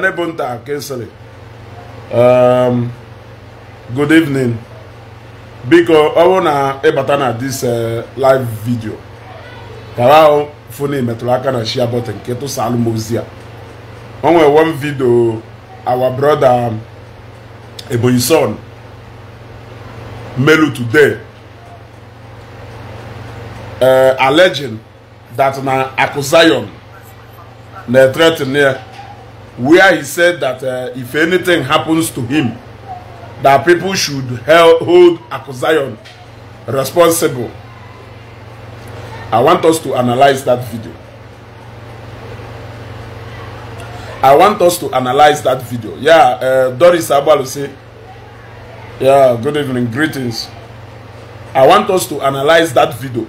Nebunta Kinsley um, good evening biko ọ bụrụ na ịbata na this uh, live video kara ahụ foni metụrụ aka na share button nke tụsalụ m ozi o one video our brother um, Ebonyi son melu today uh, alleging that na Akụ Zion na-threaten ya where he said that uh, if anything happens to him, that people should help hold Akuzayon responsible. I want us to analyze that video. I want us to analyze that video. Yeah, uh, Doris Abalu say, yeah, good evening, greetings. I want us to analyze that video.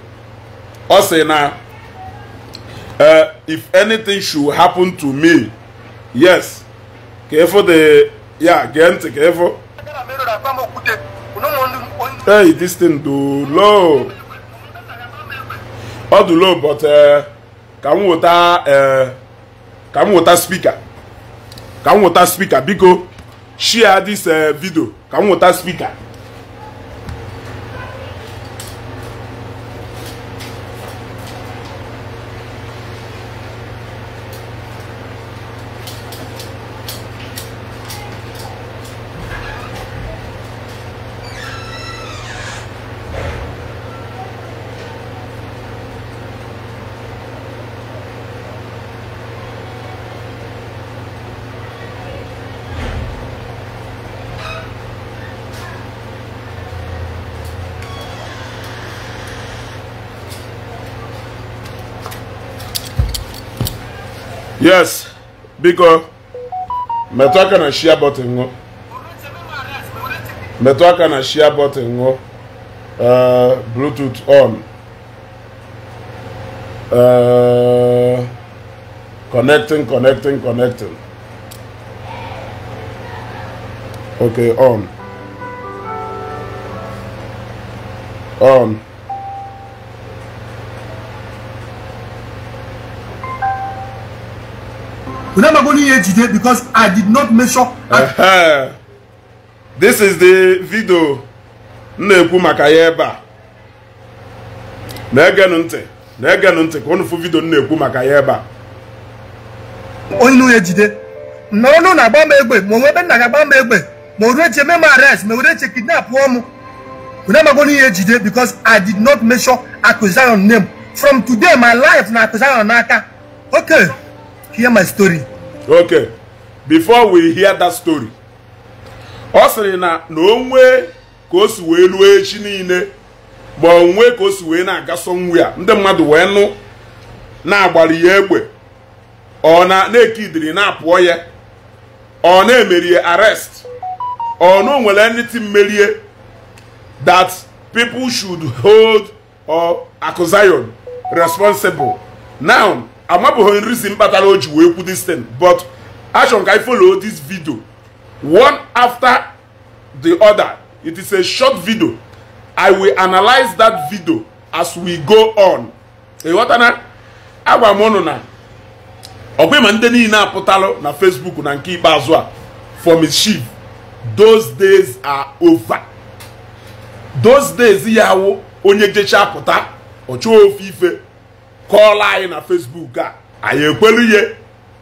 Also, now, uh, if anything should happen to me, yes ka ịfụ yeah ya gee hey this thing do low ọ dị low but uh, ka m wụta uh, ka m wụta spika ka m wụta spika biko share this uh, video ka m wụta spika yes biko metụ aka na shia bọtịn ṅụ metụ and na shia bọtịn uh, bluetooth on uh, connecting connecting connecting okay on on onye ihe ejide because i did not measure this is the video m na-ekwu maka ya ebe a ege egenụ ntị na-egenụ ntị ka unu fụ vidio m na-ekwu maka ya ebe a onye ihe ejide n'ọnụ na-agba m egbe ma onwe ebe nna ga-agba m egbe ma o reche me m arrest ma were eche kidnap m onamago ihe ejide because i did not measure accusation name from today my life na accusation n'aka okay hear my story okay before we hear that story ọ sịrị na na onwe ka o si wee ruo echi niile ma onwe ka o si wee na agaso nwu ya ndị mmadụ wee nụ na-agbali ya egbe ọ na-ekidiri na-apụọ ya ọ na-emeri arest arrest ọ na nwere anything merie that people should hold or Akụ responsible now nri si kpatara o ji wee kwu this thing but achọrọ ka anyị folo this video one after the other it is a short video i will analyze that video as we go on ịghọtana agwa m ụnụ na ọgwa ma ndị niile apụtalụ na facebook na nke ikpeazụ a for mischief those days are over those days ya awụ onye jecha pụta ọ chọọ ofe ife kọọla anyị na Facebook a anyị ekwelu ihe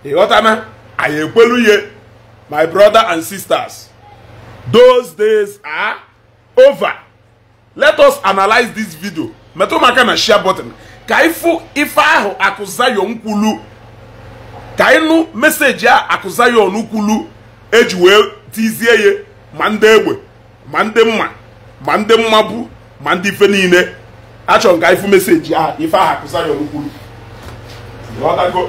ịghọtana anyị ekwelu ihe my brother and sisters those days are over let us analyze this video metụ maka na share button ka ịfụ ife ahụ akụzayon nkwulu ka ịnụ mesejị meseji a akụzayon kwulu eji wee tizie ya ma ndị egbe ma ndị mma ma ndị mma bụ ma ndị ife niile achọ nka ka ifu meseji a ife aha kụsarion kwuru ghọtago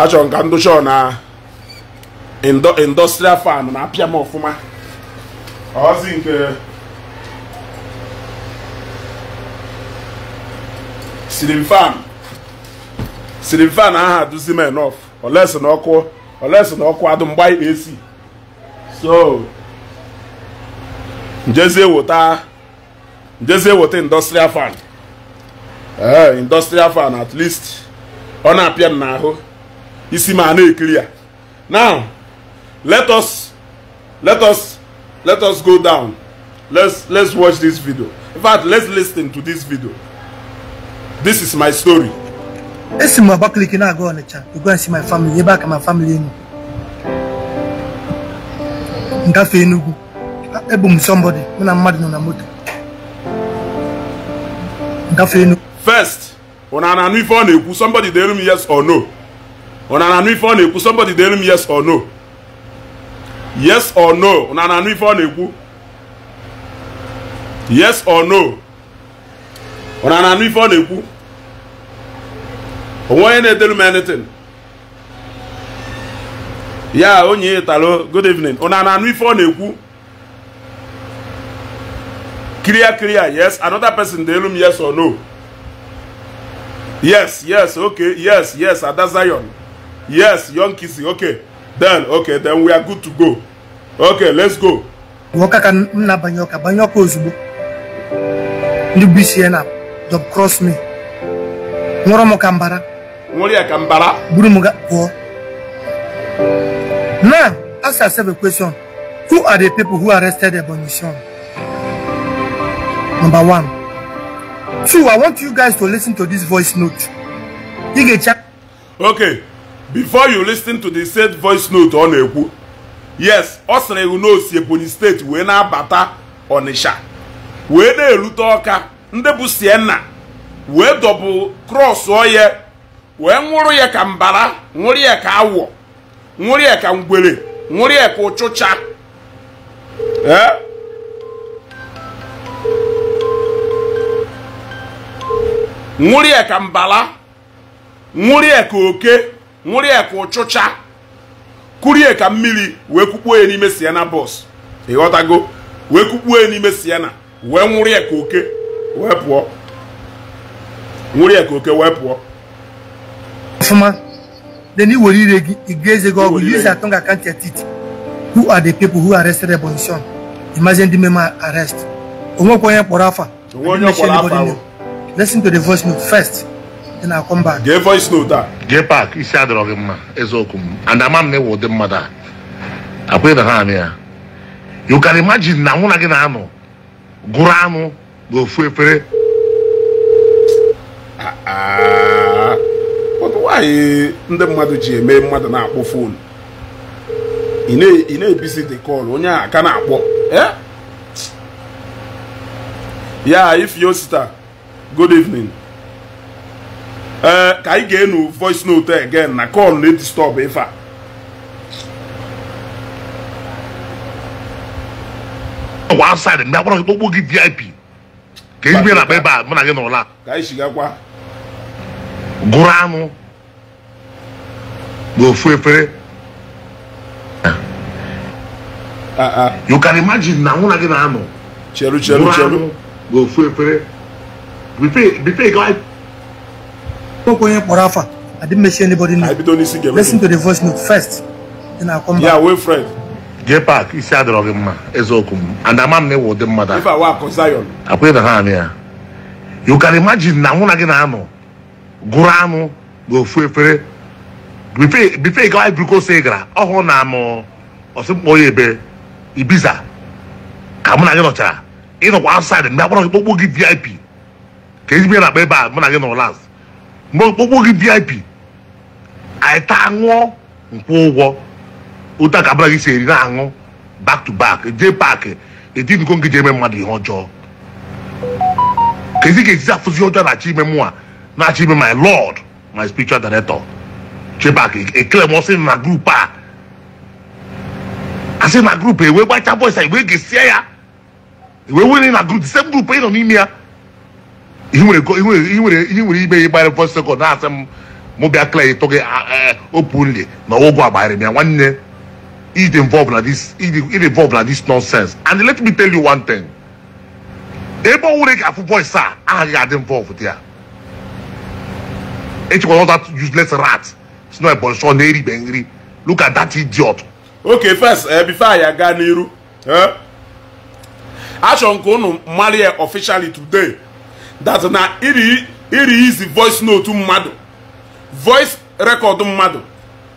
achọ m ndụ ndụchọ na industrial farm na-apịa m ọfụma ọzi nke silim fan silim fan aha duzi m enough olesi na ọkụ unless na ọkụ adụ mgba AC so njezie wota njezie wota industrial fan ee eh, industrial fan at least ọ na-apịa m n'ahụ isi ma na-ekiri ya now let us let us let us go down let's let's watch this video in fact let's listen to this video this is my story e esi m Abakaliki na-aga Ọnịcha to go and see my family ebe aka my family nọ ngafe Enugu ebu m somebody mụ na mmadụ nọ na moto ngafe Enugu first ụna na-anụ ife ọ na-ekwu somebody delu m yes or no ụna na-anụ ife ọ na-ekwu somebody delu m yes or no yes or no ụna na-anụ ife ọ na-ekwu yes or no ụna na-anụ ife ọ na-ekwu onwe onye na-edelu m anything ya onye talo good evening ụna na-anụ ife ọ clear clear yes another person dey elu m yes or no yes yes okay yes yes ada zion yes young kisi okay then okay then we are good to go okay let's go nwoke ka m na-abanye ọka banye ọka ozugbo ndị bụ isi ya na job cross me nwụrọ m ka nwere ka mbara buru m pụọ now ask yourself a question who are the people who arrested Ebonyi son number one two i want you guys to listen to this voice note you ga check okay before you listen to the said voice note ọ na-ekwu yes ọ sịrị iwu na Ebonyi steeti wee na-abata Ọnịsha wee na-erute Ọka ndị bụ Sienna wee dọbụ krọs ọya wee nwụrụ ya ka mbara nwụrụ ya ka awọ nwụrụ ya ka ngwere nwụrụ ya ka ụchụcha nwụrụ ya ka mbala nwụrụ ya ka oke nwụrụ ya ka ụchụcha kụrụ ya ka mmiri wee kukpuo ya n'ime siena bọs ịghọtago wee kukpuo ya n'ime siena wee nwụrụ ya ka oke wee pụọ nwụrụ ya ka oke wee pụọ ọfụma then i were ire gị ị ga-eze gị use atọ ga-akant etiti who are the people who arrested Ebonyi Son imagine ndị meme arrest onwekwa onye kpọrọ afa listen to the voice note first then I come back gee voice note a ah. gee pak isi adọrọ gị mma eziokwu m and ama m na ịwụ ụdị mmadụ a akwenye na ha amị ya you can imagine na mụ na gị na-anọ gụrụ anụ n'ofu efere ah, ah. nwaanyị nde mmadu ji eme mmadu na-akpọ fon i na-ebisi dị kọl onye aka ka na-akpọ e? ya ifyo sita good evening ee ka anyị ga-enu voice note again na call na-edistọb ife a ọgwa outside mgbe agbara okpokpo gị vip ka ebe na akpa ebe a mụ na gị ka anyị shigakwa gụrụ anụ go fefere ah. ah, ah. you can imagine na nwụna gị na-anọ cheru cheru cheru go fefere bipe ga okwu onye kpọrọ afa I didn't mention anybody name. I don't listen to Listen to the voice note first. Then I'll come back. Yeah, wait, friend. Jay Park, isi adịrọ gị mma, eziokwu m. And ama m na ịwụ ụdị mmadụ a. Ife awa akụ Zion. Akwụghị na ha anị ya. You can imagine na nwụ na gị na-anọ gụrụ anụ n'ofu bife gawa ibrikos gara ọhụrụ na mụ amụ ọsịmkpọ ya ebe ibiza ka mụ na gị nọchara ịnọkwa outside mgbe akpọrọ kpokpo gị vip ka ezigbo na-akpa ebe a mụ na gị nọ last mgbe okpokpo gị vip anyị taa ṅụọ nkwụ ụgwọ ụta ka mụna gị si eri na-aṅụ back to back jee paakị edinugo gị ji eme mmadụ ihe ọjọọ ka ezi ga-ejizi afụzi ọjọọ na-achọ ime mụ a na-achọ ime my lọd my spiritual director je sais pas, éclairement, c'est ma groupe. Pas. I say na group eh wey gbacha boys eh wey gesia ya wey wey na group the same group eh no ni mia ihe nwere ihe nwere ihe nwere ibe ya gbara first second na asem mo bia clear to ge openly na ogo agbara mia nwanne it involved na this it involved na this nonsense and let me tell you one thing ebe owure ga afu boys a agaghị adị involved there echekwa all that useless rats. It's not ebonso na eribe nri. Look at that idiot. Okay, first uh, before I aga n'iru eh? achọrọ nke ka unu mara officially today that na iri izi voice note mmadụ voice record mmadụ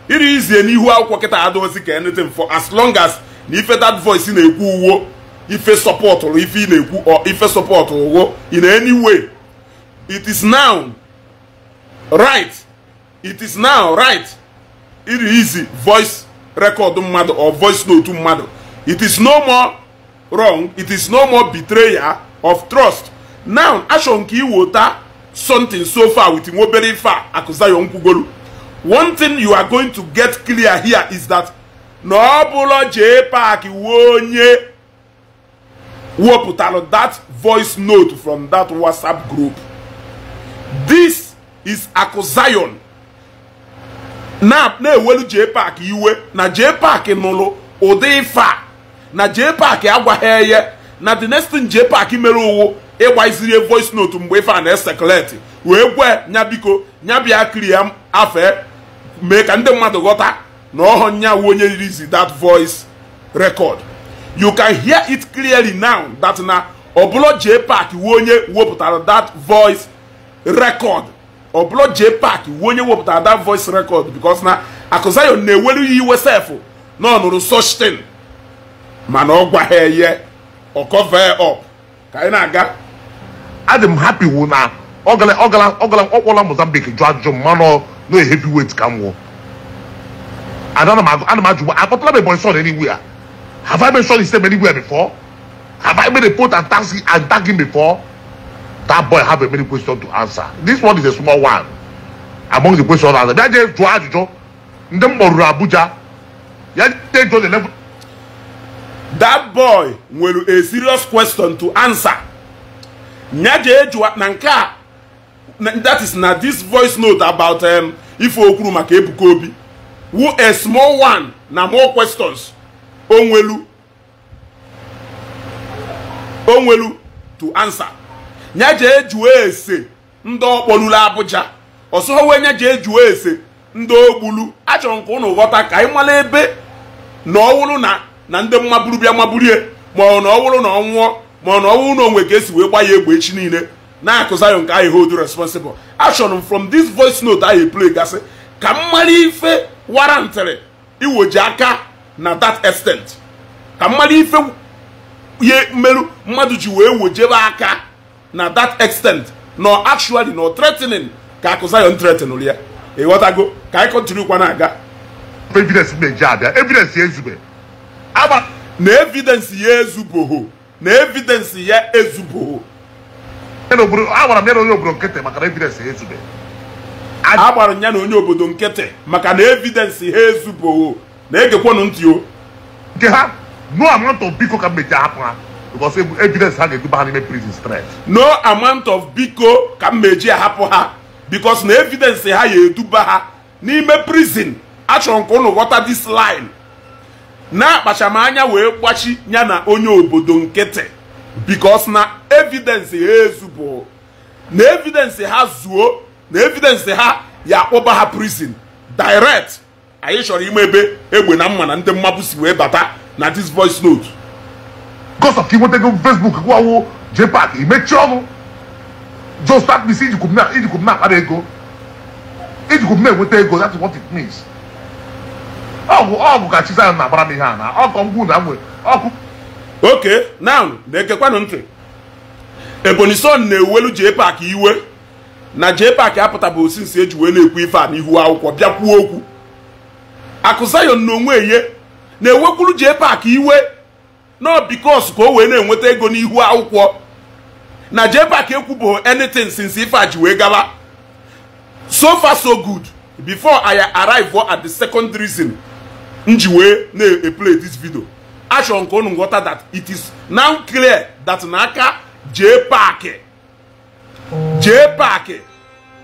iri izie n'ihu akwụkwọ kịta adịghịzi ka anything for as long as na ife that voice na-ekwu uwo ife support ife na-ekwu or ife support uwo in any way it is now right it is now right it is voice record mmadụ or voice note mmadụ it is no more wrong it is no more betrayal of trust now achọ nke iweta something so far with nwa obere ife akụzayo nkwugolu one thing you are going to get clear here is that na ọ bụla jee pak wuo onye wepụtara that voice note from that whatsapp group this is akụzayon na-ewelu JPAC iwe na JPAC nụrụ ụdị ife a na JPAC agwaghị eye na the next thing JPAC mere ụwụ ịgbaziri voice note mgbe ife a na-esekuleti wee gwe nyabiko nyabia nya kiri ya afe mee ka ndị mmadụ ghọta na ọhọ nya onye release that voice record you can hear it clearly now that na ọbụla JPAC wu onye wepụtara that voice record ọbụla jee pak wuo onye wepụtara that voice record because na Akụzayon na-ewelu ya iwe sefụ na ọ nụrụ mana ọ gwaghị eye ọ cover up ka anyị na-aga adị m happy wụ na ọ kpọla Mozambique jụ ajụjụ mmanụ na heavyweight ka m wụ ana m ajụ akpọtala m Ebonyi son anywhere have I been mentioned his name anywhere before have I been a port and taxi and taxi before that boy have a many question to answer this one is a small one among the questions answered ya jẹ jụọ ajụjụ ndị m kpọruru abuja ya jẹ jụọ the level. that boy will a serious question to answer ya jee jụọ na that is na this voice note about um, If okwuru maka who a small one now more questions onwelu onwelu to answer nya ji ejuwe ese ndị ọkpọlulu abụja ọsọ wee nya ji ejuwe ese ndị ogbulu achọrọ m ka ụnụ ghọta ka anyị mara ebe na ọwụrụ na na ndị mmaburu bịa maburie ma ọ na ọwụrụ na ọ ma ọ na ọwụrụ na onwe ka esi wee gba ya egbe echi niile na-akụza ya nke anyị hold responsible achọrọ m from this voice note anyị play gasị ka m mara ife warantịrị iwoji aka na that extent ka m mara ife ihe mmerụ mmadụ ji wee wojebe aka na that extent nọ actually nọ threatening ka akụ ya threatenụrụ ya ịghọtago ka anyị kọntinu kwa na-aga na abịa evidence ya na evidence ya ezubogho na ya agbara m ya na onye obodo nkịtị maka na evidence ya ezube agbara ha na egekwanụ nke ha no ka mmeji hapụ ha because evidence ha ga-eduba ha n'ime prison straight no amount of biko ka m meji ahapụ ha because na evidence ha ga-eduba ha n'ime prison achọrọ m ka this line na-akpacha wee gbachi ya na onye obodo nkịtị because na evidence ha ezubụ na evidence ha zuo na evidence ha ya akpụba ha prison direct anyị chọrọ ime ebe egbe na mma na ndị mmapụ si wee bata na this voice note Kosa iweta inwetago Facebook gwawo JPAC imechi ọnụ jostat bisi ijikwub na-akpara ego ijikwub na-enweta ego that's what it means ọgwụ ọgwụ ka Chizzy na-agbara m ihe a na ọkọ ngwu na nwe na-ekekwanụ ntị Ebonyi Son na-ewelu park iwe na JPAC apụtabụ osinsi eji wee na-ekwu ife a n'ihu akwụkwọ bịa kwuo okwu Akụ na onwe ye na-ewekwuru iwe nọ bikos ka o wee na-enweta ego n'ihu akwụkwọ na park ekwubo anytin since ife a ji wee gaba so far so good bifo i arrive at the second reason m ji wee na-eplay this video achọrọ nke unu nghọta that it is now clear that n'aka jpak jpak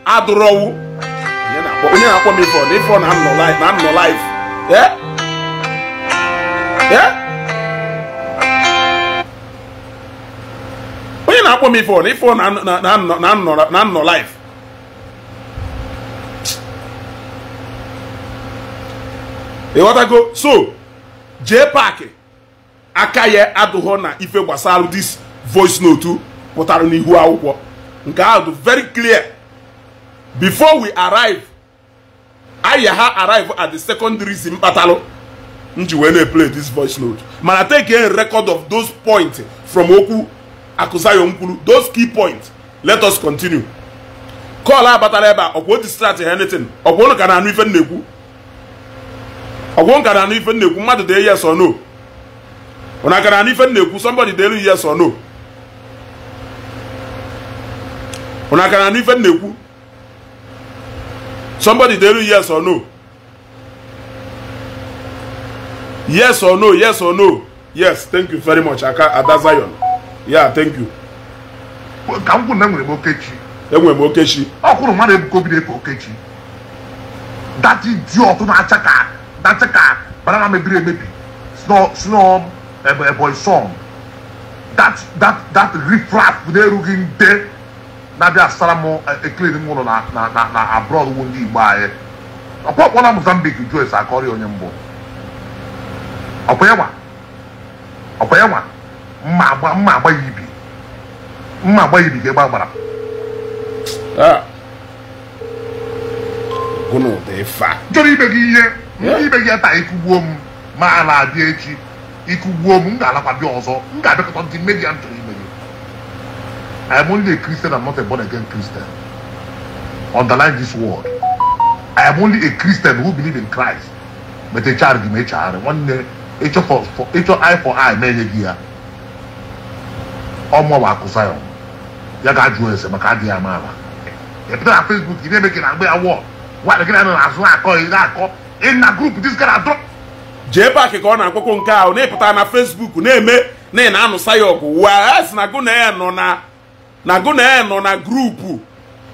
adụrọwu onye na-akpọ m ifo ọ na ifo na-anọ live na-akpọ m ifon ifon na nnọ life ịghọtago so jee park aka ya adụghọ na ife gbasara dis voice note pụtara n'ihu akwụkwọ nke ahụ dị very clear before we arrive aya ha arrive at the secondary mkpatalụ m ji wee na-eplay this voice note mana take a record of those points from okwu Akuzayo Nkwulu those key points let us continue kọl abatala ebe a ọkwụ distract anything ọkwụ ụnụ ka na-anụ ife nnekwu ọkwụ ka na-anụ ife nnekwu mmadụ dee yes or no ụna ka na-anụ ife nnekwu somebody dee yes or no na ka na-anụ ife nnekwu somebody dee yes or no yes or no yes or no yes thank you very much aka ada Zion ya thank you ka m kwuru na enwere m okechi enwere m okechi ọ kwụrụ mmadụ ebuka obi na-efe okechi dati di ọtụ na-acha ka dacha acha ka banana mebiri emebi snow eboy song that that that riffraff na-erughị nde na-abịa asara m ekele m ụlọ na na na abroad wu ndị igbo anyị ọkpọkpọ na mozambique joyce akọrị onye mbụ ọkwa ya nwa ọkwa ya nwa mma agba mma agba ya ibi mma agba ya ibi ka egbe agbara chọrọ ah. ibe gị ihe ibe gị taa ikugbuo m ma a na echi ikugbuo m m ga-alakwa bịa ọzọ m ga-abịakọta ndị media m chọrọ ime gị I am only a Christian and not a born again Christian. Underline this word. I am only a Christian who believe in Christ. But a ma a child, one day, eye for eye, gị ya. ọmụwa akụsa ya ya ga-ajụ ese maka adịghị ama ama ịpụta na Facebook ị na-eme gị na agba awọ nwaanyị gị na-anọ n'azụ na-akọ ị na-akọ ị na grup gara adọ jee paakị ka ọ na-akpọkwo nke ahụ na-epụta na Facebook na-eme na ị na-anụsa ya ọgụ wa si na gụna nọ na na gụna nọ na grupu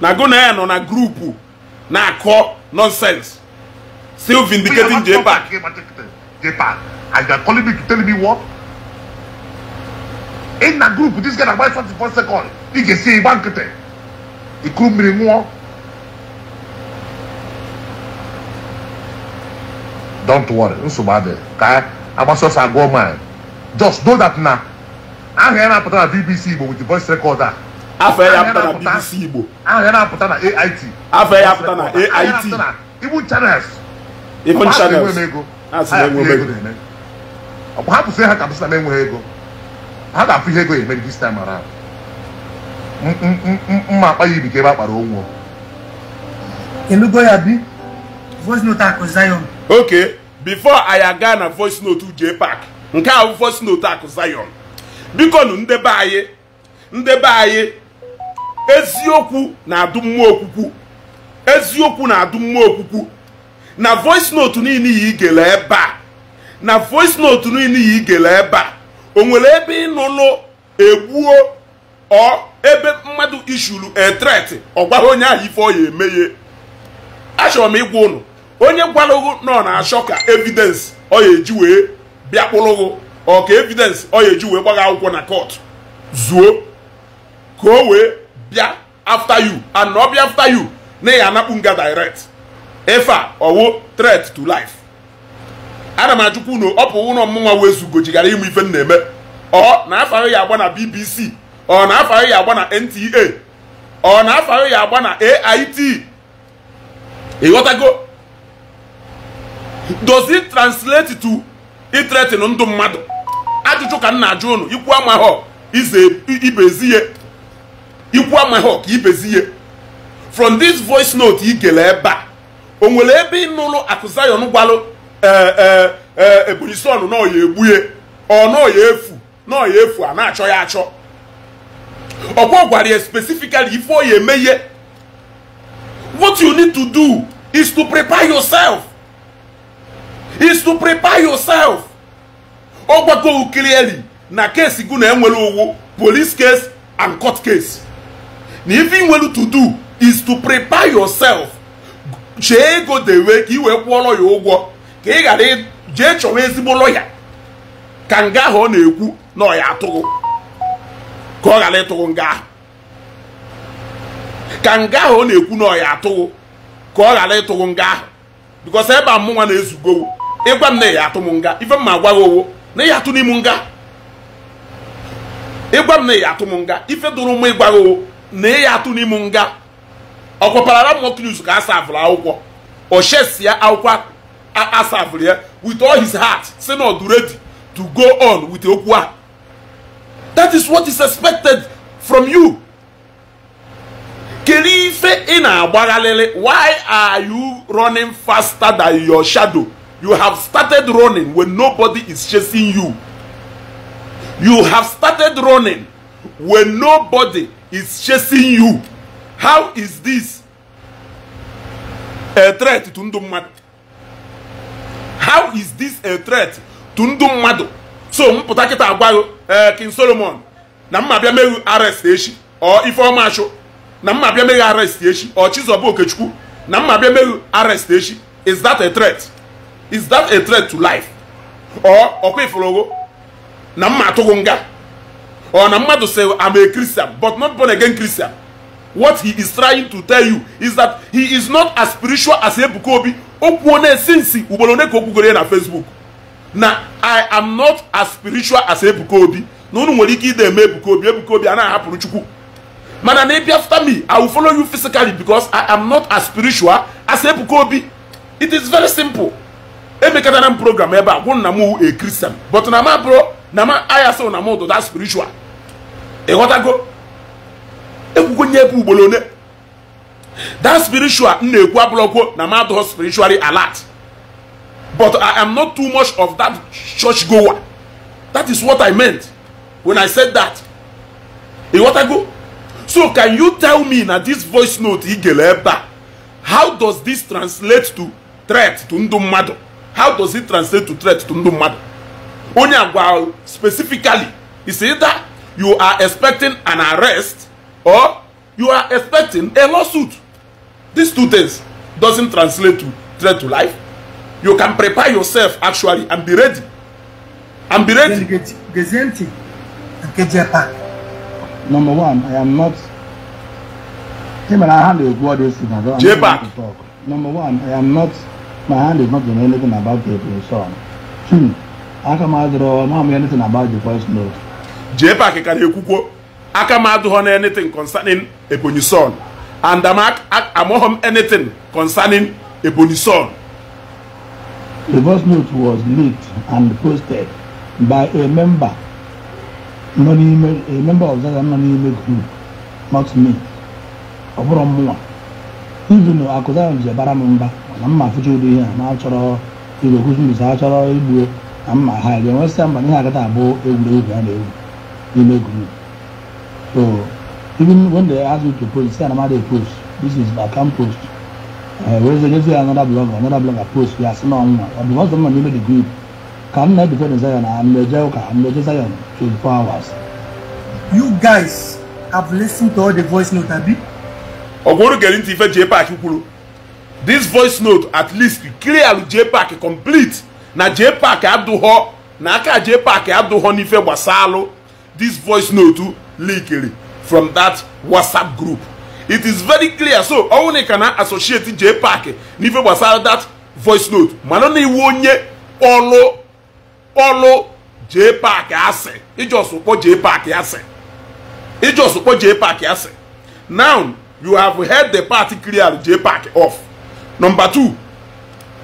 na gụna nọ na grupu na-akọ nonsense still vindicating J-Pack. j ị na grupu dis guy na-agba 44 sekọnd ị ga-esi ịgba nkịtị ikuru mmiri nwuo don't worry nsogbu adịghị ka agbasa agụọ mile just know that na aha ya na-apụta na bbc igbo with the voice record a afọ ya apụta na bbc igbo aha ya na-apụta na ait afọ ya apụta na ait ibu channels ibu channels ha si enwe enweghị ego ha ka m sị na m ego ha ga-afụ ihe go emere this time around mma akpa ya ka ebe a kpara onwo elugo ya bi voice note akụ before anyị aga na voice note uje park nke a bụ voice note akụ zion biko nụ ndebe anyị ndebe anyị eziokwu na-adụ mmụọ okwukwu eziokwu na-adụ mmụọ okwukwu na voice note niile ya igele ebe a na voice note niile ya igele ebe a o nwere ebe ịnụnụ egbuo ọ ebe mmadụ ishuru etret ọ gwara onye ahụ ife ọ emeghe eme achọrọ m ịgwa ụnụ onye gwalụghụ ọ na-achọ ka evidence ọ ya eji wee bịakpụrụghụ ọ ka evidence ọ ya eji wee gbaga akwụkwọ na kọt zuo ka o wee bịa after you and ọ bịa after you na ya anakpu nga direct ife a ọwụ threat to life ana m ajụkwa unu ọ bụ ụlọ mmụnwa wezugo jigara ịmụ ife m na-eme ọ na afahụ ya agba na BBC ọ na afahụ ya agba na NTA ọ na afahụ ya agba na AIT ịghọtago dozi translate to itretin ndụ mmadụ ajụjụ ka m na-ajụ unu ikwu amahọ ize ibezi ihe ikwu amahọ ka ibezi ihe from this voice note ị gere ebe a o nwere ebe ị nụrụ akụzayon gwalụ ebonyi sọn na ya egbue ọ na ya efu na ya efu a na-achọ ya achọ ọkwa gwara ya specifically ife ọ eme ihe what you need to do is to prepare yourself is to prepare yourself ọ gwago clearly na keesi na-enwere owu police case and court case na ife ị nwere to do is to prepare yourself chee ego dewe ka ị wee kwụọrọ ya ụgwọ ka ị ghara jee chọwa ezigbo lọya ka nga ahụ ọ na-ekwu na ọ ya atụghị ka ọ ghara ịtụghị nga ahụ ka nga ahụ ọ na-ekwu na ọ ya atụghị ka ọ ghara ịtụghị nga ahụ bikos ebe a mụnwa na-ezugowo ịgwa m na ya atụ m nga ife m agwa agwaghị owo na ya atụ n'im nga ịgwa m na ya atụ m nga ife dụrụ m ịgwaghị owo na ya atụ n'im nga ọkwaparara m ọkụ news ka a sa avụrụ akwụkwọ o chesia akwụkwọ asafụrụ ya with all his heart say na ọdụ redi to go on with okwu a that is what is expected from you kedu ife ị na-agbagharịrị why are you running faster than your shadow you have started running when nobody is chasing you you have started running when nobody is chasing you how is this a threat to ndụ mmadụ how is this a threat to ndu mmadụ so mpụta pụta kịta agwaghị eh, king solomon na mma bịa meghe arrest echi ọ ifeọma achụ na mma bịa meghe arrest echi ọ chizọba okechukwu na mma bịa meghe echi is that a threat is that a threat to life ọ ọkwa ifụrụgo na mma atụghị nga ọ na mmadụ say i'm a christian but not born again christian what he is trying to tell you is that he is not as spiritual as ebuka obi okwuo na-esi nsi ugboro one ka okwugoro ya na Facebook na i am not as spiritual as Ebuka Obi na unu nwere ike ide eme Ebuka Obi Ebuka Obi a na-ahapụrụ Chukwu mana na ịbịa after me i will follow you physically because i am not as spiritual as Ebuka Obi it is very simple emekatara m program ebe a gwụ na m a Christian but na ma bụrụ na ma aya na m ụdụda spiritual ịghọtago ekwugo nye ebe ugboro one. that spiritual m na-ekwu abụrọkwo na madụ spiritually alert but i am not too much of that church goer that is what i meant when i said that go so can you tell me na this voice note ị gere ebe how does this translate to threat to ndụ mmadụ how does it translate to threat to ndụ mmadụ onye agwa specifically is either you are expecting an arrest or you are expecting a lawsuit These two things doesn't translate to threat to life. You can prepare yourself actually and be ready. And be ready. Gazenti, J-Pack. Number one, I am not. Him and I handle all these things. I J-Pack. Number one, I am not. My hand is not doing anything about the song. Hmm. Aka m adịrọ na m anything about the first note. J-Pack ka na-ekwukwo aka m adịghọ na anything concerning Ebonyi Son. and am, among him anything concerning Ebony son. The voice note was leaked and posted by a member, a member of that not me. ọbụrụ mụnwa ivin akụzara m m mba na mma afụcha ụdị ihe a na achọrọ achọrọ igbuo na mma ha ga-enwesịa mgbe ihe agata abụ egwuregwu a egwu n'ime group even when they ask you to post, say post. This is I can post. Uh, eh, whereas against another blogger, another blogger post, we are still on But because someone made the group, can not defend Zion and the Joker and the Zion 24 hours. You guys have listened to all the voice note, Abi. Ogoro J Park This voice note at least clear J complete. Na J Park na aka J This voice note eh, from that WhatsApp group. It is very clear. So, only can associate J Park. Nive was out that voice note. Manoni wonye olo olo J Park ase. It just support J Park ase. It just support J Park ase. Now you have heard the party clear J Park off. Number two,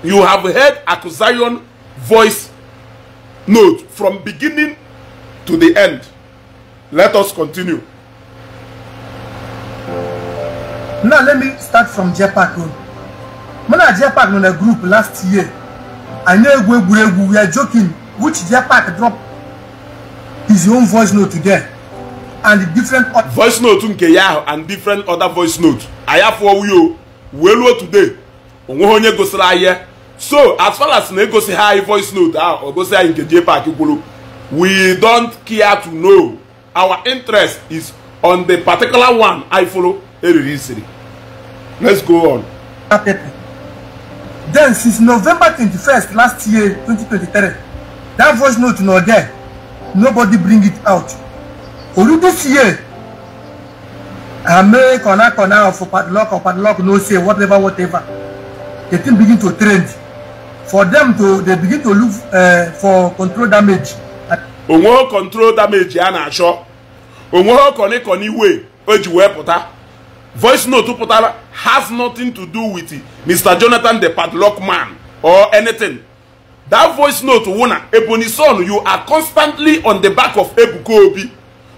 you have heard accusation voice note from beginning to the end. Let us continue. now let me start from jepak road mụ na jepak on na group last year I know egwu egwuregwu we are joking which jepak drop his own voice note there and different other voice note nke ya ahụ and different other voice note anyị afọ wuyo wee luo today onweghị onye gosiri anyị so as far as na egosi ha anyị voice note ahụ o gosi anyị nke jepak kwuru we don't care to know our interest is on the particular one anyị follow eriri isiri let's go on. Pepper. Then since November 21st last year 2023 that voice note no there nobody bring it out. Olu this year I Ame kona kona for padlock or padlock no say whatever whatever the thing begin to trend for them to they begin to look uh, for control damage. Onwe control damage a na-achọ onwe kọnịkọnị wee o ji wee voice note put out has nothing to do with it. Mr. Jonathan the padlock man or anything. That voice note, Ebony son, you are constantly on the back of Ebuko Obi.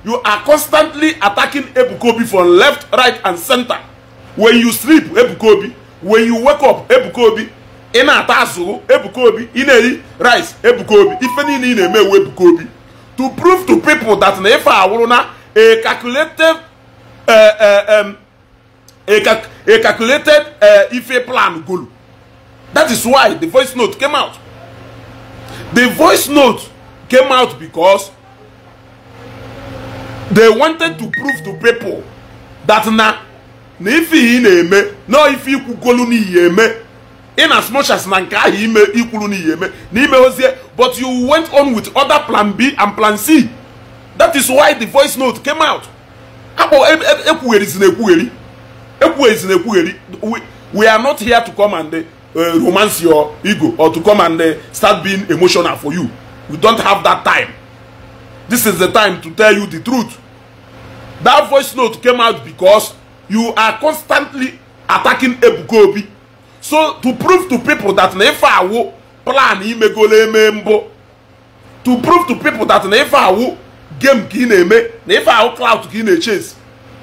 You are constantly attacking Ebuko Obi from left, right, and center. When you sleep, Ebuko Obi. When you wake up, Ebuko Obi. Ị na-ata azụ Ebuka Obi ị na-eri rice Ebuka Obi ife niile ị eme ewu Ebuka Obi to prove to people that na ife awụrụ na a calculated uh, uh, um, a, cal a calculated uh, IFE plan goal. That is why the voice note came out. The voice note came out because they wanted to prove to people that na na ife ị na-eme na ife ikwugolu n'ihe eme in as much as na nke ahụ ime ikwuru n'ihe eme na ozie but you went on with other plan B and plan C that is why the voice note came out akpọ ekwugherizi e, e na ekwugheri ekwughezi na ekwugheri we are not here to come and eh, romance your ego or to come and eh, start being emotional for you we don't have that time this is the time to tell you the truth that voice note came out because you are constantly attacking Ebuka Obi so to prove to people that na ife plan imegolo eme mbụ to prove to people that na ife game ka ị na-eme na ife ka ị na-echase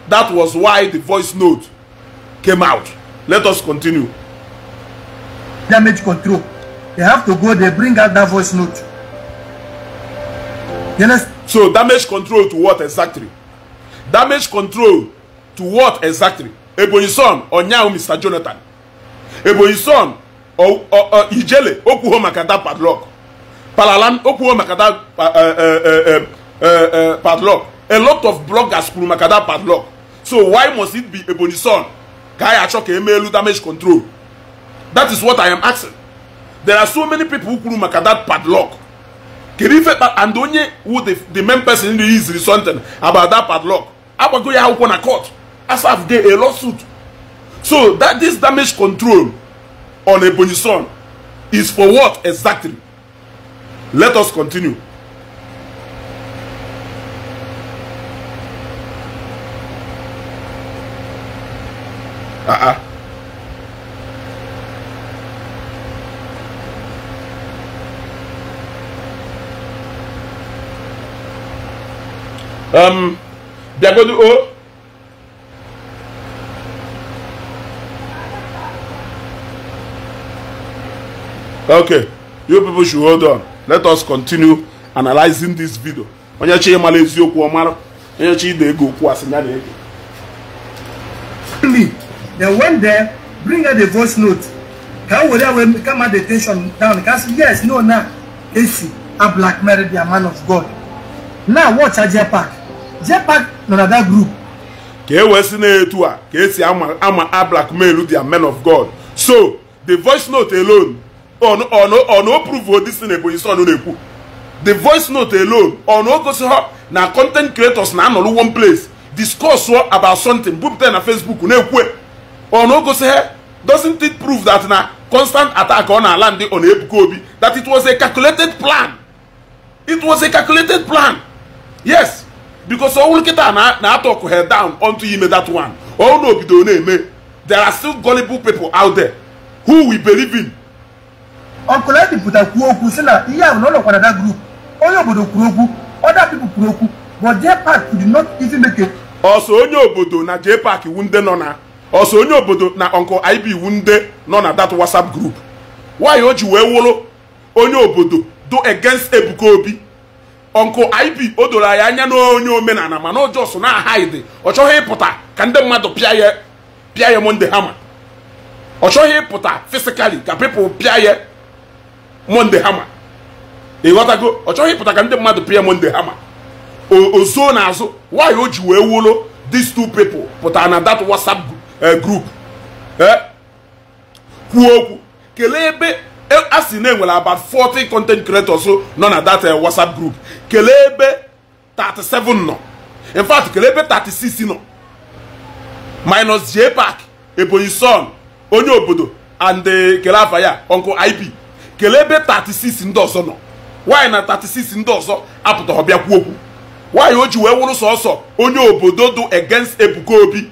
that was why the voice note came out. Let us continue. Damage control. They have to go, there. bring out that voice note. You understand? So damage control to what exactly? Damage control to what exactly? Ebonyi son ọnyanwụ Mr. Jonathan. Ebonyi son Ijele okwuho maka that padlock. Palalan okwuho maka that eh, eh, eh, padlock. A lot of bloggers kwuru maka that padlock. So why must it be Ebonyi son? ka anyị achọ ka damage control that is what i am asking there are so many people kwuru maka that padlock kedu ife and onye wu the main person iziri something about that padlock agbago ya akwụkwọ na court asaf gay a lawsuit so that this damage control on ebonyi son is for what exactly let us continue ah ah um, they are going Okay, you people should hold on. Let us continue analyzing this video. Onye chi ịmala eziokwu ọmara, onye chi ide ego okwu asị ya na ego they went there bring out the voice note kan wòle awo kan ma the tension down kan say yes no na esu a black mary their man of god now watch her jetpack jetpack another na that group. ka e si na-etu a ka ama ama a blackmail the man of god so the voice note alone on on on o prove o dis thing ebonyi son na-ekwu the voice note alone on o gosi ha na content creators na anọrọ one place discuss about something bupụta na facebook na-ekwu e. ọ na doesn't it prove that na constant attack ọ na-ala ndị ọ na obi that it was a calculated plan it was a calculated plan yes because ọnwụ nkịta na-atọ ọkụ head down onto ime that one ọnwụ na obido na-eme there are still gullible people out there who we believe in. ọkụla ndị pụta kwuo okwu sị na ihe ahụ na ụlọ group onye obodo kwuru okwu oda pipo kwuru okwu but jpark did not even make it. ọsọ onye obodo na jpark iwu ndị nọ na ọsọ onye obodo na ọnkụ ib wunde nọ na that whatsapp group nwaanyị o ji wee wụrụ onye obodo do against ebuka obi ọnkụ ib o doro anyị anya n'onye omenala mana ọjọọ sọ na ahaidi ọ chọghị ịpụta ka ndị mmadụ pịa ya pịa ya monde hama ọ chọghị ịpụta fisikali ka pipụl pịa ya monde hama ịghọtago ọ chọghị ịpụta ka ndị mmadụ pịa monde hama ozuo n'azụ nwaanyị o ji wee wụrụ these two people pụtara na that whatsapp group group eh? kwuo okwu kelee ebe e, a sị na enwere about 40 content creators nọ na that eh, WhatsApp group kelee ebe 37 nọ in fact kelee ebe 36 nọ minus J Park Ebonyi Son onye obodo and eh, kele afa ya Uncle IP kelee ebe 36 ndị ọzọ nọ nwaanyị na 36 ndị ọzọ apụtara ọbịa kwuo okwu nwaanyị o ji wee wụrụ sọsọ onye obodo dụ against Ebuka Obi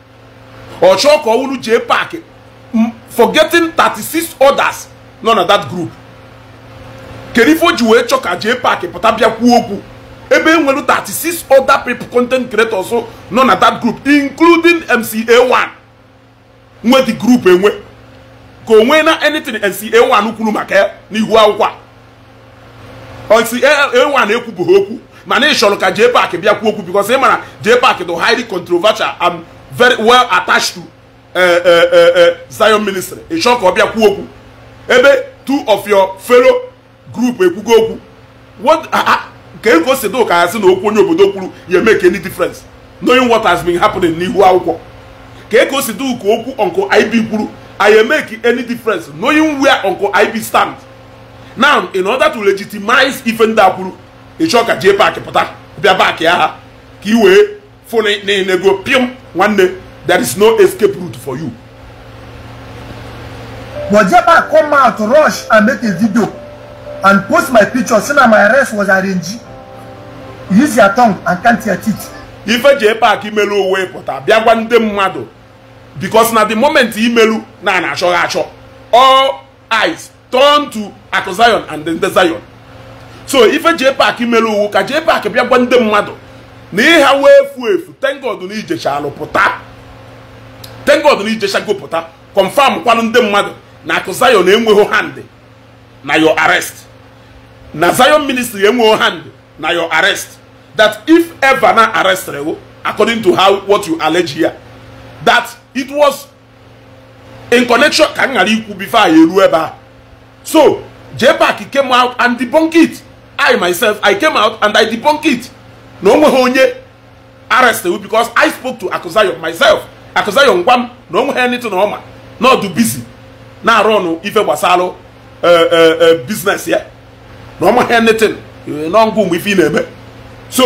ọchọ ka ọwụrụ jee paaki forgetting 36 others nọ na that group kedu ji wee chọ ka jee paaki pụta bịa kwuo okwu ebe enwere 36 other people content creators nọ na that group including mca1 nwe di group enwe ka onwee na anything mca1 kwuru maka ya n'ihu akwụkwọ mca1 ekwubeghị okwu ma na chọrọ ka jee park bịa kwuo okwu because ị mara jee paaki dị highly controversial very well attached to eh, eh, eh, Zion ministry ịchọ ka ọ bịa kwuo okwu ebe two of your fellow group ekwugo okwu nke ka e o si do ka ya na okwu onye obodo kwuru you make any difference knowing what has been happening n'ihu akwụkwọ ka ka e o si do ka okwu uncle IB kwuru I make any difference knowing where uncle IB stand? now in order to legitimize ife ndị a kwuru ịchọ ka jee paakị pụta bịa paakị ya ha ka fụna e, na-enego one day there is no escape route for you. But Jabba come out rush and make a video and post my picture say na my arrest was arranged. Use your tongue and count your teeth. Ife ji park imelu uwe pụta bịa gwa nde mmadụ because na the moment imelu na na-achọghị achọ all eyes turn to Akụ and and nde Zion. So ife ji park imelu uwu ka ji paaki bịa gwa mmadụ na ịha wee efu efu tengod na ijechalụ thank tengod na ijechago pụta confam kwanụ ndị mmadụ na akụ Zion enweghị hand na your arrest na Zion ministry enweghị hand na your arrest that if ever na arrested you according to how what you allege here that it was in connection ka m ghara ikwu before anyị eruo ebe a so jebak came out and debunk it I myself I came out and I debunk it na nweghị onye arrest you because I spoke to Akuzayo myself Akuzayo ngwa m na nweghị anything na ọma na ọdụ busy na-arụ ọnụ ife gbasalụ e, e, e, business ya na ọmaghị anytin n'ọngụ mgbe ife ị na-eme so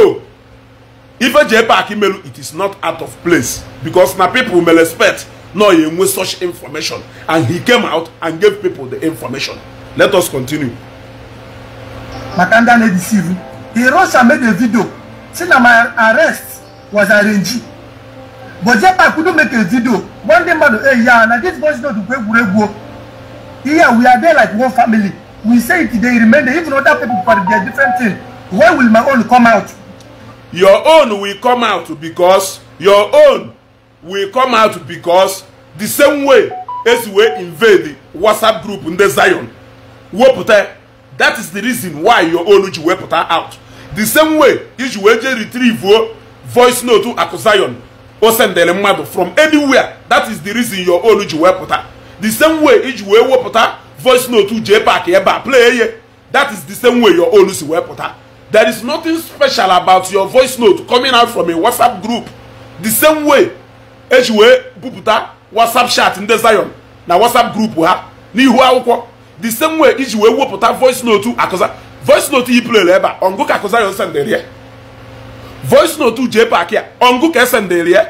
ife ji ebe imelu it is not out of place because na people may respect no you enwe such information and he came out and gave people the information let us continue maka ndị a na-edisivu the ị made a vidio. say na my arrest was arranged but jepa kudo make a video one day madu hey ya na this boys no do kwe egwuregwu here we are there like one family we say it dey remain there even other people for their different thing Why will my own come out. your own will come out because your own will come out because the same way as we invade the whatsapp group ndị zion wepụta that is the reason why your own ji wepụta out the same way iji wee jee retrieve voice note akụ zion o sendere mmadụ from anywhere that is the reason your own ji wee pụta the same way iji wee wepụta voice note jee pak ebe a play ye that is the same way your own si wee pụta there is nothing special about your voice note coming out from a whatsapp group the same way eji wee bupụta whatsapp chat ndị zion na whatsapp group ha n'ihu akwụkwọ the same way iji wee wepụta voice note akụza voice note yi plere ebe a ọngụ ka Kuzari sendịrị ya voice note je park ya ọngụ ka esendịrị ya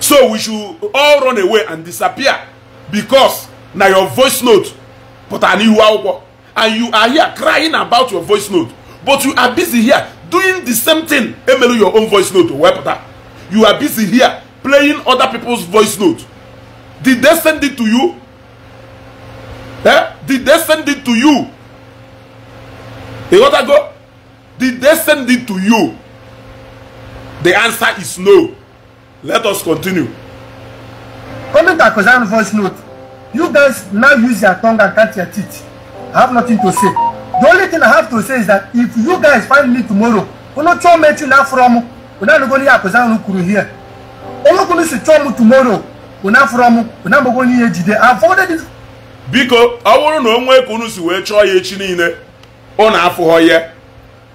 so we should all run away and disappear because na your voice note pụtara n'ihu akwụkwọ and you are here crying about your voice note but you are busy here doing the same thing emelu your own voice note wepụta you are busy here playing other people's voice note did they send it to you eh? did they send it to you A lot ago, did they send it to you? The answer is no. Let us continue. Comment a Kozan voice note. You guys now use your tongue and cut your teeth. I have nothing to say. The only thing I have to say is that if you guys find me tomorrow, Unocho met you now from Unanogoni Akozan Ukuru here. Olokunu Sichomu tomorrow, Una from Unamogoni Ejide. I've ordered it. Biko, I want to know where Kunu si wee chọọ ya echi niile. ụnụ afụghọ ya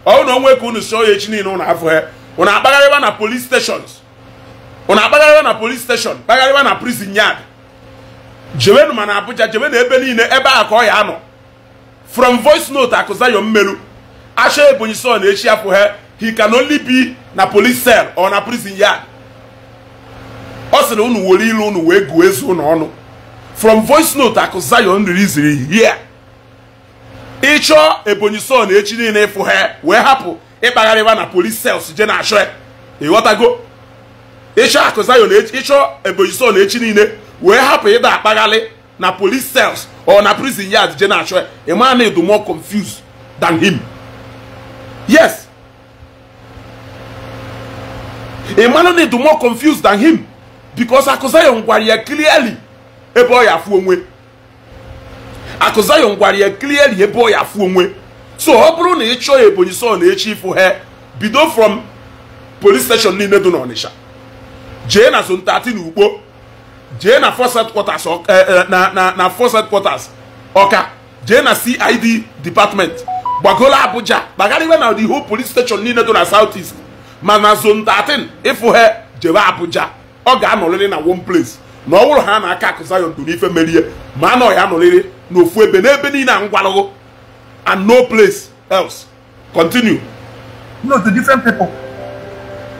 ọ onwe ka unu si oya echi niile ụnụ afụghọ ya ụnụ akpagharịwa na police stations ụnụ akpagharịwa na police station kpagharịwa na prison yard jewenu ma abụja jewe jewenu ebe niile ebe a ka ọ anọ from voice note akụzayo mmeru asha ebonyi so na echi afụghọ he can only be na police cell or na prison yard ọ sịrị unu were ilu unu wee gụọ ezu ụnụ ọnụ from voice note akụzayo nri ziri here ịchọọ ebonyi son echi niile ịfụ ha wee hapụ ịkpagharịba na polis sels je na-achọ ya ịghọtago ịchọ akụ zayon ịchọọ ebonyi son echi niile wee hapụ ịda akpagharị na polis sels ọ na prison yard je na-achọ ya ị maa na edu more confused than him yes ị mara na edu more confused than him because akụ zayon gwara ya clearly ebe ọ ya afụ onwe akụ Zion gwara ya clearly ebe ọ ya afụ onwe so ọ bụrụ na ị chọọ ya Ebonyi na echi ifu ha bido from polis steshọn niile dị n'Ọnịsha jee na zone na Ugbo jee na eh, eh, na Ọka jee na CID department gbagoro Abuja kpagharịwe na the whole police station niile dị na South East ma na 13 ịfụ jebe Abuja ọ ga-anọrịrị na one place na ọ bụrụ ha na aka akụ Zion ife merie ma anọghị anọrịrị n'ofu ebe n'ebe niile a ngwalụghụ and no place else continue no to different people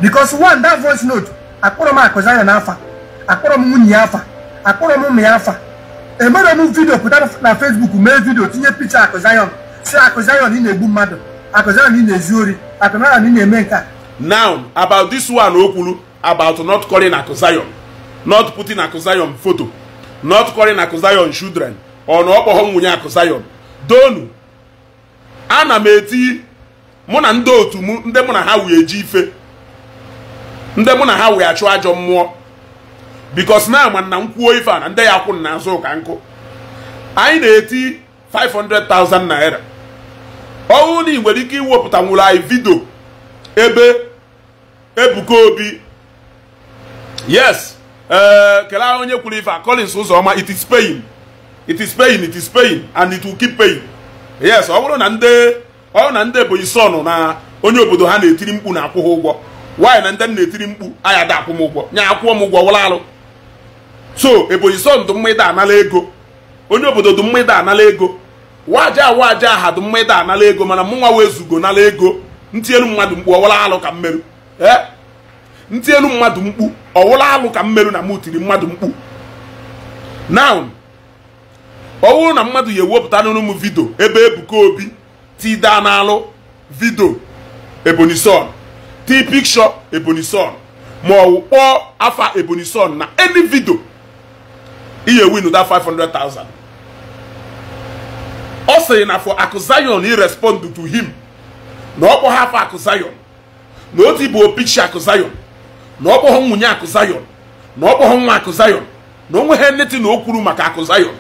because one that voice note akpọrọ m akụ Zion afa akpọrọ m nwunye ya afa akpọrọ m ụmụ ya afa emere m vidio pụta na Facebook mee vidio tinye picha akụ si akụ Zion ị na-egbu mmadụ akụ ị na-ezu ori akụ Zion ị na-eme nke a now about this one o kwuru about not calling akụ not putting foto photo, not calling Akuzayon children, or na ọkpọghọ nwunye Akuzayon. Donu, ana m eti mụ na ndị otu m ndị mụ na ha wee ji ife ndị mụ na ha wee achụ ajọ mmụọ bikos na ama na nkwuo ife a na ndị ya kwụ n'azụ ụka nkụ anyị na-eti 500,000 naira ọnwụ na nwere ike iwepụta nwụrụ anyị vidio ebe ebuka obi yes ee eh, kelee onye kwuru ife a Collins Uzoma it is pain it is pain it is pain and it will keep pain yes ọ bụrụ na ndị ọ bụrụ na ndị Ebonyi sọn na onye obodo ha na-etiri mkpu na akwụghị ụgwọ nwaanyị na ndị m na-etiri mkpu aya da akwụ m ụgwọ nye akwụọ m ụgwọ wụlalụ so Ebonyi sọn dụ mma ịda anala ego onye obodo dụ mma ịda anala ego waja waja aha dụ mma ịda anala ego mana mụnwa wezugo nala ego ntinyelu mmadụ mkpu ọwala alụ ka mmerụ ee eh? ntị elu mmadụ mkpu ọwụla alụ ka mmerụ na m tiri mmadụ mkpu now ọ bụrụ na mmadụ ya ewepụta n'ụlọ m vidio ebe Ebuka Obi na n'alụ vidio Ebonyi Son tii pikshọ Ebonyi Son ma ọ kpọọ afa Ebonyi Son na eni vidio iye win that 500,000 ọ sịrị na for Akuzayon irespond respond to him na ọ kpọghị afa Akuzayon na otu bụ opichi Akuzayon na ọ kpọghọ nwunye akụ Zion na ọ kpọghọ nwa akụ Zion na o nweghị netin na o kwuru maka akụ Zion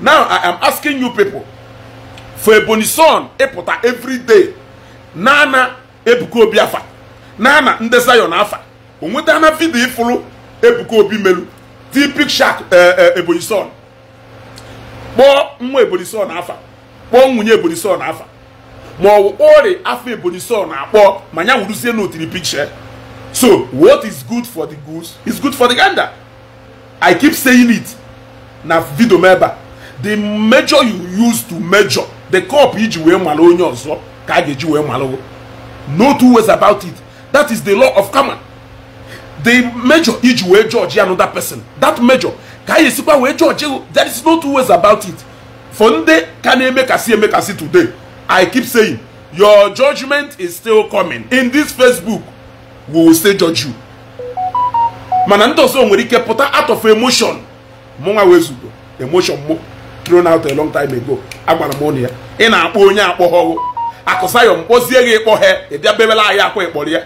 now I am asking you people for Ebonyi son ịpụta everyday na-ana Ebuka Obi afa na ndị Zion afa o nwetana vidio ịfụrụ Ebuka Obi melu tipik shak eh, eh, Ebonyi son kpọọ nwa Ebonyi son afa kpọọ nwunye Ebonyi son afa ma ọ wụ kpọọrị afa Ebonyi son na ma ya na otiri pikcha So, what is good for the goose is good for the gander. I keep saying it. Na video member. The measure you use to measure, the cup iji wee malo onye ọzọ ka eji wee malo. No two ways about it. That is the law of common. The measure iji wee judge another person. That measure ka a ga-esikwa judge there is no two ways about it. For ndị ka na-emekasị emekasị today, I keep saying your judgment is still coming. In this Facebook we will still judge you mana ndị ọzọ nwere ike pụta out of emotion mụnwa wezugo emotion mụ thrown out a long time ago agwara m ụnụ ya ị na-akpọ onye akpọghọghụ akụsayọm kpọzie gị ịkpọ ha ị bịa bebela anyị akwa ịkpọrọ ya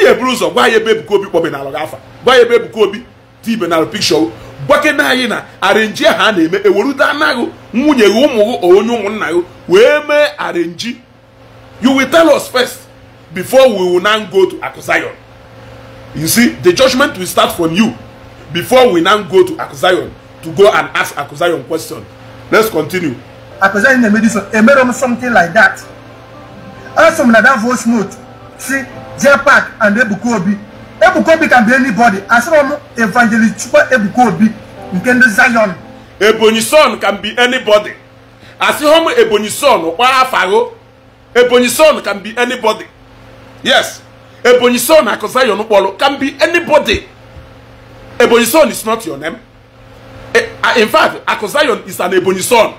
ihe buru ụzọ gwa ya ebe Ebuka Obi kpọbe n'alụ afa gwa ya ebe Ebuka Obi tibe na pikshọ gbakene anyị na arenji e ahụ a na-eme ewerude anaghị nwunye gị ụmụ gị onye ụmụnna gị wee mee arenji you will tell us first before we will now go to Akusayon. You see, the judgment will start from you before we now go to Akusayon to go and ask Akusayon question. Let's continue. Akusayon made something like that. Also, in that voice note, see, jepak and Ebukobi. Ebukobi can be anybody. As long evangelist Chuba Ebukobi, you can do Zion. Ebony son can be anybody. As home Ebony son, or Ebony son can be anybody. Yes. Ebonyi Son Akosayon Ubolo can be anybody. Ebonyi Son is not your name. Eh, ah, in fact, Akosayon is an Ebonyi Son.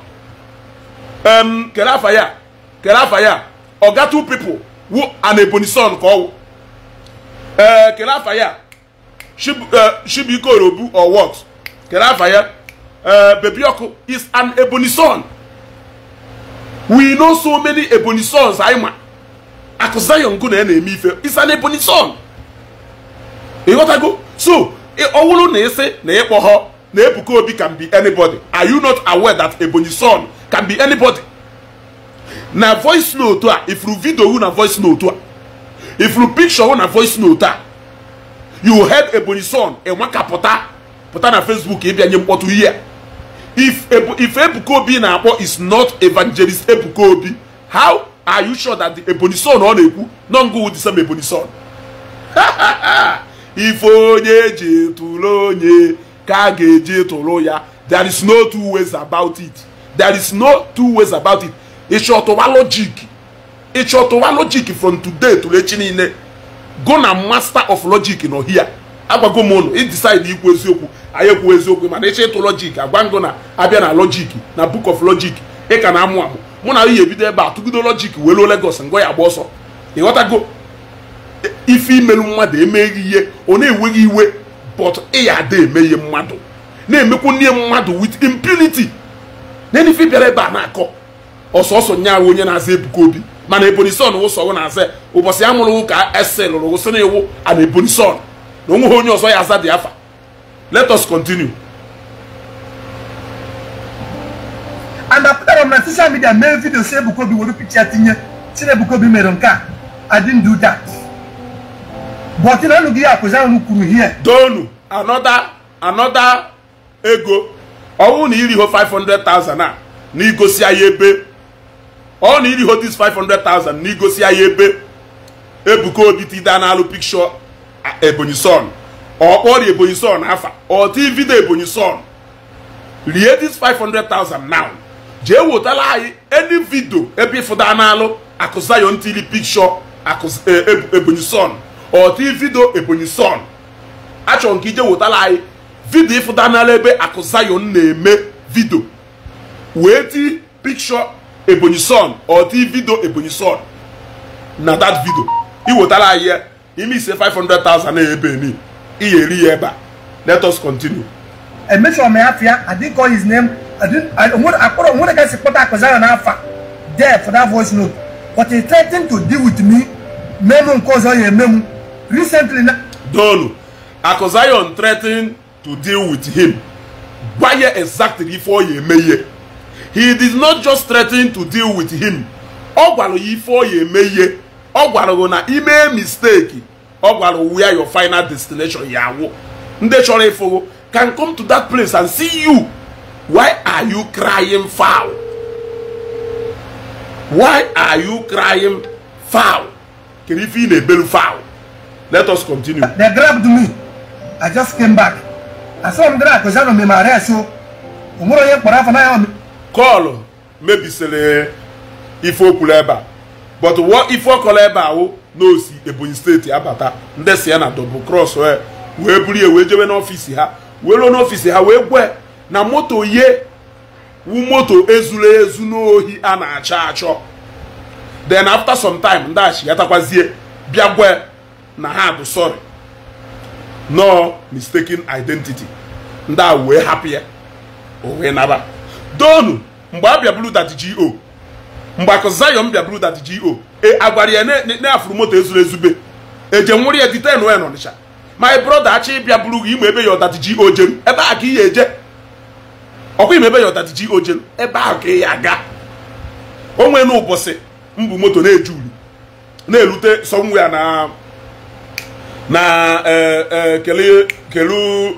Um, Kerafaya, Kerafaya, or two people who an Ebonyi Son ọwụ Uh, eh, Kerafaya, Shibiko eh, Robu or what? Kerafaya, uh, is an Ebonyi Son. We know so many Ebonyi Sons, Aima. akụ zion gụ na ya na-eme ife isa na ebonyi son ịghọtago so ọwụrụ wụrụ na ịsị na ịkpọghọ na ebuka obi can be anybody are you not aware that ebonyi son can be anybody na voice note a ifuru video hụ na voice note a ifuru picture hụ na voice note a you heard ebonyi son enwe ka pụta pụta na facebook ịbịa nye mkpọtụ ihe if ebuka obi na-akpọ is not evangelist ebuka obi how are you sure that the ebony son ọ na-ekwu nọ ngụ the same ebony son ife onye eji tụrụ onye ka a ga-eji tụrụ ya there is no two ways about it there is no two ways about it ịchọtụwa logic ịchọtụwa logic from today tụrụ echi niile go na master of logic nọ hia agwago m ụnụ ịdecide ikwu eziokwu anyị ekwu eziokwu mana ịchọ ịtụ logic agwa na abịa na logic na book of logic ị ka na-amụ amụ mụ na ihe ebido ebe a tụgido lọjik wee luo Lagos ngwa ya gba ọsọ ịghọtago ife imelu mmadụ emeghị ihe ọ na-enweghị iwe bọt ịya ada eme ihe mmadụ na-emekwu nne mmadụ wit impunity na ife bịara ebe a na-akọ ọsọsọ nyaahụ onye na-aza Ebuka Obi mana Ebonyi Son wụsọwụ na-aza ụbọchị ya mụrụ ụka ese lụrụ wụsị na iwu ana Ebonyi Son na onweghị onye ọzọ ya aza dị afa let us continue and after that on my social media mee video say ebukobi were picture tinye sị ebukobi mere nke a i didn't do that but na unu gị ya akụzi ahụ here donu another another ego ọnwụ na iriho 500,000 a na igosi ya ebe ọ na iriho this 500,000 na igosi ya ebe ebuka obi tida n'alụ pikshọ ebonyi son ọ kpọrọ ebonyi son afa ọ tii vidio ebonyi son rie this five hundred thousand now jee wetara anyị eni vidio ebe ịfụda n'alụ akụzayon tili pikshọ e, e, ebonyi son ọtị vidio ebonyi son achọrọ nke ije wetara anyị vidio ịfụda n'alụ ebe akụzayon na-eme vidio wee ti pikshọ ebonyi son ọtị vidio ebonyi son na dat vidio iwetara anyị ya ime ise 500,000 ebe ni iyeri ya ebe a let us continue. his name When a get support Akozana alpha there for that voice note, but he threatened to deal with me, Memo Kozoye Memo, recently. Donu, Akozayon threatened to deal with him. Baye exactly for ye meye. He did not just threaten to deal with him. ogwalo ife ọ ya eme ihe na ime mistake ogwalo gwara your final destination ya awụ ndị chọrọ ịfụgo can come to that place and see you Why are you crying foul? Why are you crying foul? Can you feel a bell foul? Let us continue. They grabbed me. I just came back. I saw them there because I don't remember. So, I'm going to get for Call. Maybe sele ebe a. But what ife okwuru ebe a o oh, n'osi Ebonyi steeti abata ndị si ya na double cross eh. wee buru ya wee jewe n'ọfiisi ha wee ruo n'ọfiisi ha wee gwe na moto ye wu moto ezuru ezu n'ohi a na-achọ achọ then after some time ndachighatakwazie bịa gwa na ha bụ sorry no mistaken identity ndị a wee hapụ ya o wee naba donu mgbe a bịaburu dat go mgbe akụ zion bịaburu dat go e agwara ya na-afụrụ moto ezuru ezube eje nwụrụ ya diten wen ọnịcha my brother achọ ịbịa buru gị ime ebe ya dat go jem ebe a ka ị ya eje ọkwa ime ebe ya ji ojelu ebe ahụ ka ị ya aga onwe ụbọchị mbụ moto na-eju uri na erute somewhere na na e, e, kelu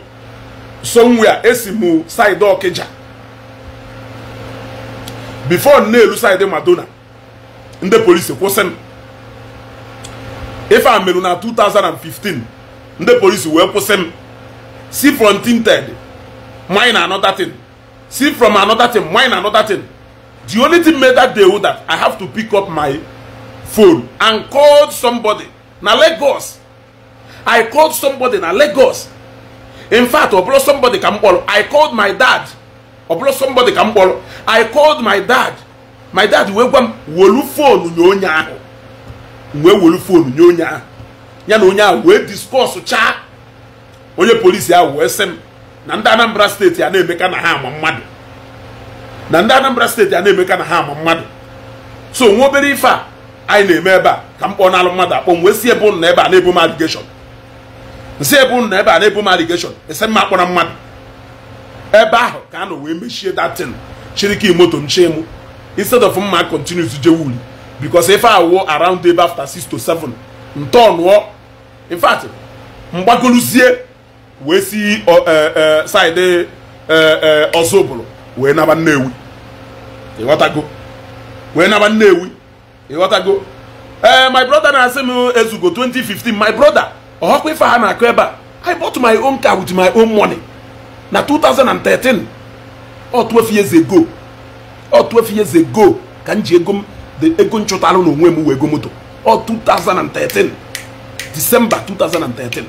somewhere esi mụ saịdị ọkịja bifo na-elu saịdị madona ndị polisi kwụsị m ife merụ na 2015 ndị polisi wee kwụsị m si frontinted manyị na anọtatin see from another thing mine another thing the only thing made that day that i have to pick up my phone and call somebody na lagos i called somebody na lagos in fact ọbụrụ somebody ka m kpọrọ i called my dad ọbụrụ somebody ka m kpọrọ i called my dad my dad wee gwa m wolu fonu nye onye ahụ wee wolu fonu nye onye ahụ ya na onye ahụ wee discuss chaa onye polisi ahụ wee sị m na ndị Anambra steeti a na-emeka na ha ama mmadụ na ndị Anambra steeti a na-emeka na ha ama mmadụ so nwa obere ife a anyị na-eme ebe a ka m kpọọ n'alụ mmadụ akpọ m wee si ebe na ebe a na-ebu m aligeshọn nsi ebu na ebe a na-ebu m aligeshọn ese mma akpọrọ mmadụ ebe ahụ ka a nọ wee mechie datin chiriki moto m chee mụ instead of mma continues je wuli because ife awụ around ebe after 6 to 7 ntọọ nụọ in fact mgbagoluzie wee si e, e, saịdị e, ọzọbụlụ wee naba nnewi ịghọtago wee naba nnewi ịghọtago ee my brother na-asị m ezugo 2015 my brother ọhọkwa ife ha na-akụ ebe a i bought my own car with my own money na 2013 ọ 12 years ago ọ years ago ka m ji ego m ego nchụtara n'onwe m wee moto ọ 2013 December 2013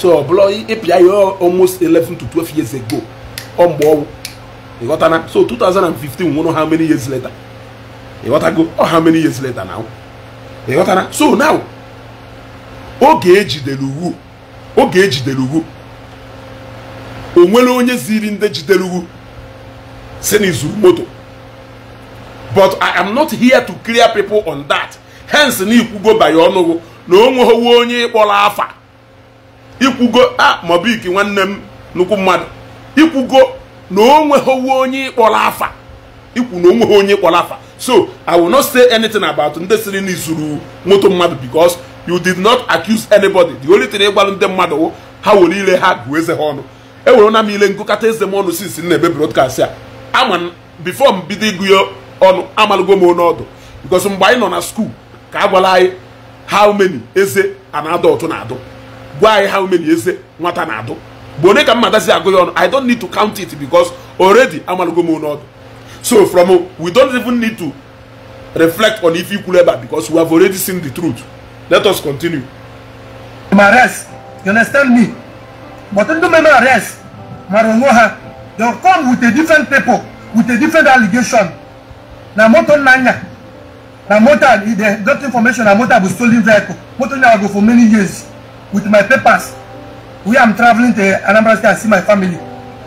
so ọ bụrụ ịpịa ya almost 11 to 12 years ago ọ mgbe ị ịghọtana so two thousand and fifteen nwụrụ how many years later ghọtago ọ how many years later now ịghọtana so now oge ejidere uwu oge ejidere uwu o nwere onye ziri ndị jidere uwu si na izuru moto but i am not here to clear people on that hence na ikwugo by ọnụgụ na o nweghị onye ịkpọrọ afa ikwugo a mobik nwanne m nnukwu mmadụ ikwugo na onweghị onye ịkpọrọ afa ikwu na onweghị onye ịkpọrọ afa so i will not say anything about ndị siri na izuru moto mmadụ because you did not accuse anybody the only thing ịgbalụ ndị mmadụ ha were ile ha gụọ eze ha ọnụ ewere na m ile nkụkata eze m ọnụ since na broadcast a ama before m bido ịgụ ya ọnụ amalụgo m onye ọdụ because mgbe anyị nọ na school ka a gwara anyị how many eze and adult na-adụ Why? how many years? Eh, nwata na-adụ But onye ka mmata si agụ ya ọnụ i don't need to count it because already amalago m n'ọdụ so from uh, we don't even need to reflect on if you ebe a because we have already seen the truth let us continue ma arrest you understand me but ndị mere arrest mara onwe ha they come with a different paper with a different allegation na moto nnanya na moto they got information na moto bụ stolen vehicle moto nya go for many years with my papers where I'm traveling to Anambra State and see my family.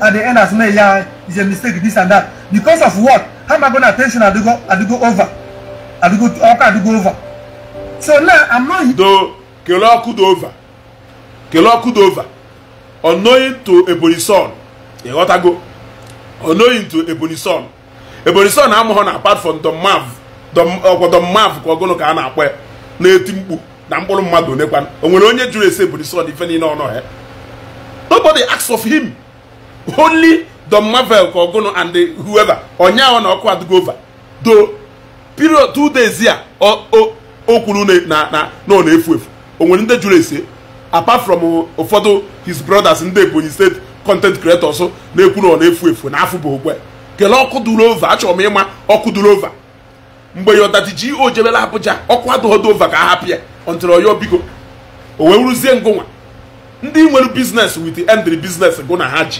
At the end, I say, yeah, it's a mistake, this and that. Because of what? How am I going to attention I do go, I do go over? I do go, okay, I do go over. So now I'm not. Kelo could over. Kelo could over. Unknowing to Ebony son. got to go. Unknowing to apart from the Mav. The, uh, the Mav, kwa gono ka ana akwe. Na eti mkpu. na mkpụrụ mmadụ onekwa o nwere onye jụrụ ese buru sod ife niile ọnụ ya nobody asks of him only the marvel ka ogunu and whoever ahụ na ọkụ adịgo over do period two days ya o kwuru na ọ na-efu efu o nwere ndị jụrụ ese apart from ụfọdụ his brothers ndị ebonyi steeti content creators na-ekwu na ọ na-efu efu na afụ bụ okwe kelee ọkụ duru over achọrọ m ịma ọkụ duru over mgbe ya ọdaji ji o abụja ọkụ adụghọdo over ka a hapụ ya until oyo biko o wee ngụnwa ndị nwere biznes with end biznes gụ na ha ji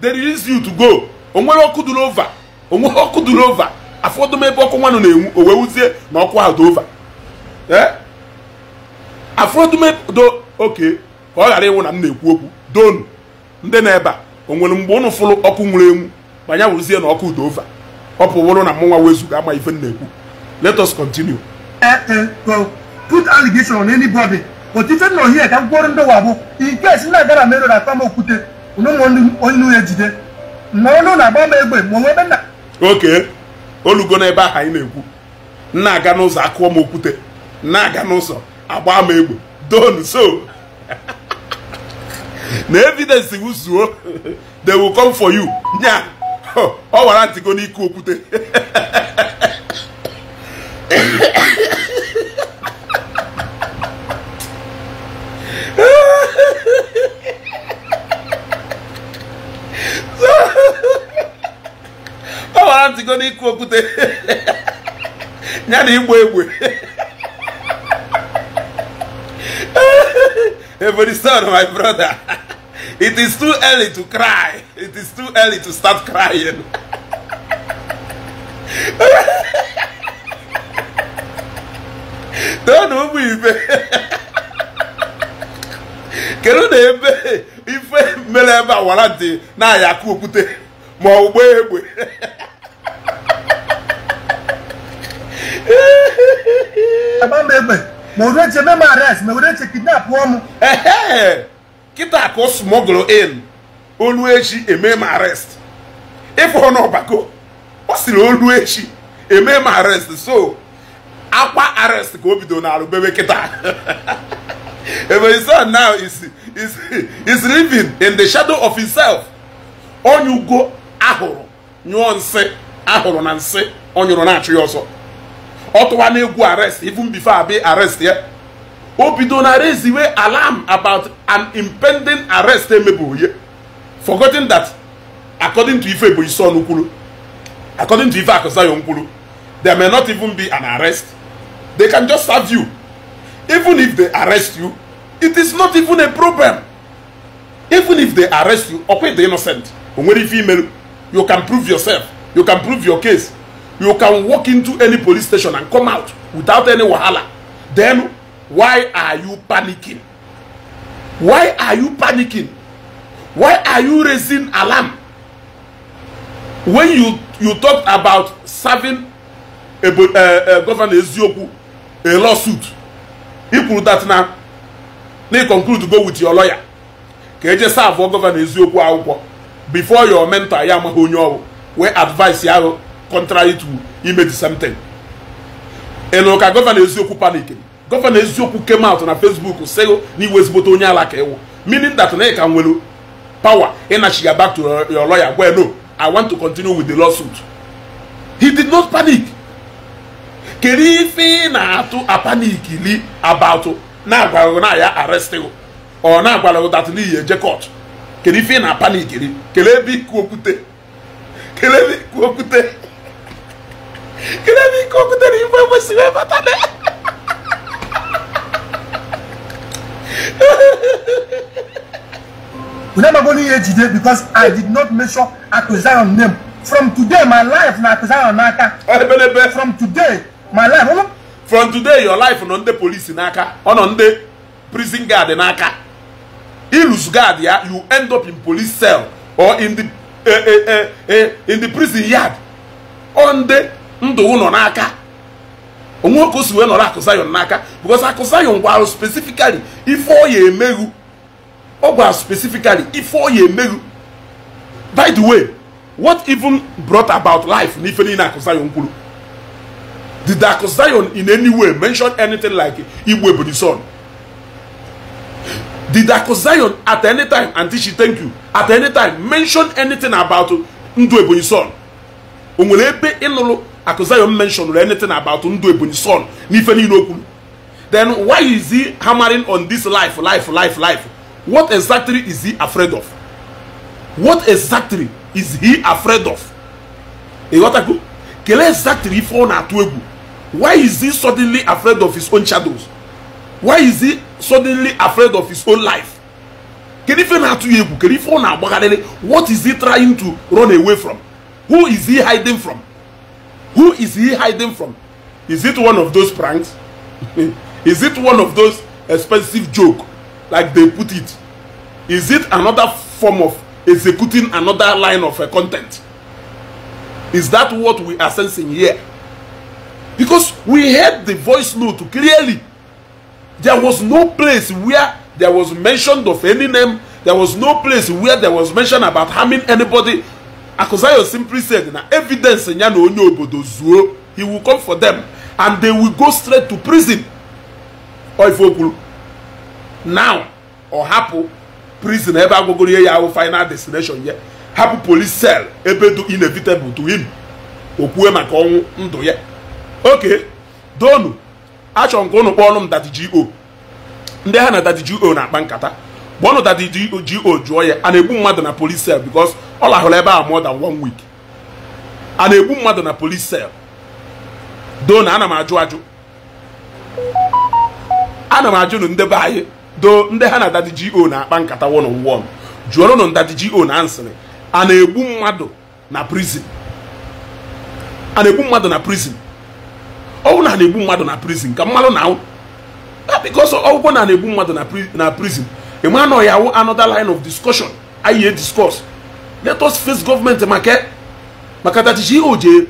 they release you to go onwere ọkụ duru ova ọkụ duru ova afọdụm ebe ọkụ nwanụ na-enwu o wee na ọkụ ahụ dị ova afọdụm e, do oke ka ọ ghara ịnwụ na m na-ekwu okwu donu ndị na-ebe a o nwere mgbe ụnụ fụrụ ọkụ nwụrụ enwu ma wụrụzie na ọkụ dị ova ọ pụwụrụ na mụnwa wezuga ama ife m na-ekwu let us continue Eh, eh, put allegation on anybody but ife nọ hie ka mkpụrụ ndọwa bụ in case na agara merụ na akpam okwute onye ya jide ma ọnụ na-agba m egbe ma onwe ebe nna oke olugo n'ebe ahụ anyị na-ekwu na-aga n'ụzọ akụọ m okwute nna aga n'ụzọ agba m egbe don so na evidence wu zuo they will come for you nya ọ wara ntịgo n'ike okwute amachigo n'ịkụ okwute ya na igbo egbe Every son, my brother, it is too early to cry. It is too early to start crying. Don't know ibe Kedu na ebe ife mere ebe awara dị na ya akụ okwute ma ọ gbaa egbe Agba m ma eche mee arrest ma kịta ka ọ in olu echi eme m arrest ịfụ n'ọbako ọ osiri olu echi eme m arrest so akwa arrest ka o bido na bebe kịta ebe his now is is living in the shadow of himself onye ugo ahụrụ nyụọ nsị ahụrụ na nsị ọ nyụrụ na-achụ ya ọ na n'egwu arrest even before abi arrest ya o bido na reziwe alarm about an impending arrest emebụghị ya forgotten that according to ife Ebonyi Son kwuru according to ife akuzayo kwuru there may not even be an arrest they can just serve you even if they arrest you it is not even a problem even if they arrest you ọkwa the innocent o nwere ife imerụ you can prove yourself you can prove your case you can walk into any police station and come out without any wahala then why are you panicking why are you panicking why are you raising alarm when you you talked about serving a, a, a eh, eh, governor Eziokwu a lawsuit e kwuru that na na you conclude to go with your lawyer ka eje serve governor Eziokwu akwụkwọ before your mentor ya amaghị onye ọrụ wee advice ya ahụ contrary to ime the same thing ịnụ ka gọvanọ eziokwu panik gọvanọ eziokwu came out na facebook sị na iwe ezigbote onye ala ka ịwụ meaning that na ị ka nwere power ịnachi ya back to your lawyer gwa no i want to continue with the lawsuit he did not panic kedu ife ị na-atụ apanik li about na-agwaghị na ya arrest ọ na-agwara that n'ihi eje court kedu ife ị na-apanik li kelee iku okwute kelee ebe iku okwute kedu ebe ike o butere ife kwesịrị ịbata na Unu amagolo ihe jide because I did not mention Akụzion name from today my life na Akụzion n'aka ebelebe from today my life from today your life nọ ndị polisi n'aka ọ nọ prison guard n'aka ilus guard ya you end up in police cell or in the eh, eh, eh, in the prison yard on the ndụ ụnọ n'aka onwe okwu osi wee nọrọ akụzayon n'aka bikos akụzayon gwara spesifikali ife ọ ya emeghu ọ gwara spesifikali ife ọ ya emeghu by the way what even brought about life n'ife niile akụzayon kwuru did akụzayon in any way mention anything like igbo ebony son did akụzayon at any time auntie she thank you at any time mention anything about ndụ ebonyi son o nwere ebe ịnụrụ Akuzayom mentioned anything about Ndu Ebony's son n'ife niile okwu then why is he hammering on this life life life life what exactly is he afraid of what exactly is he afraid of ịghọtago kelee exactly ife ọ na-atụ egwu why is he suddenly afraid of his own shadows why is he suddenly afraid of his own life kedu ife na-atụ ya egwu kedu ife ọ na-agbagharịrị what is he trying to run away from who is he hiding from Who is he hiding from? Is it one of those pranks? is it one of those expensive joke, like they put it? Is it another form of executing another line of uh, content? Is that what we are sensing here? Because we heard the voice note clearly. There was no place where there was mention of any name. There was no place where there was mention about harming anybody. Akozayo simply said na evidence ya na onye obodo zuo he will come for them and they will go straight to prison oife okwuru now ọ hapụ prison ebe agwagoro ihe ya ahụ final destination ya hapụ police cell ebe do inevitable to him o maka ọnwụ ndụ ya oke donu achọrọ nke ka ụnụ ọnụ m dadi go ndị ha na dadi go na-akpa nkata kpọọnụ dadi go jụọ ya a egbu mmadụ na police cell because ọ lahụrụ ebe a more than one week a na-egbu mmadụ na police cell doo na ana m ajụ ajụ ana m ajụ na ndebe anyị doo ndị ha na dadi go na-akpa nkata one on one jụọrọ nụ ndadi go na nsịrị a na-egbu mmadụ na prison a na-egbu mmadụ na prison ọwụ na na-egbu mmadụ na prison ka mmadụ na bikos ọgwụgwọ na na-egbu mmadụ na prison ị ma anọghị awụ another line of discussion anyị e discuss let us face gọọmenti maka maka dachichi ihe o ji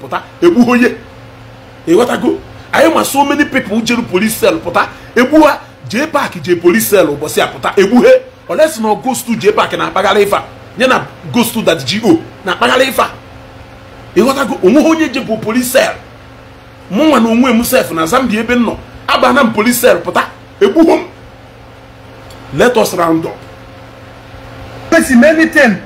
pụta egbughị onye ịghọtago anyị ma so many people jere police pụta egbu je jee je jee police ụbọchị a pụta egbughe olesi na gostu jee na-akpagharị ifa nye na gostu dachichi na-akpagharị ifa ịghọtago eh, onweghị onye jebụ police cell mụnwa na onwe m sef na Zambia ebe m nọ abana m polisel pụta egbughị m let us round up person anything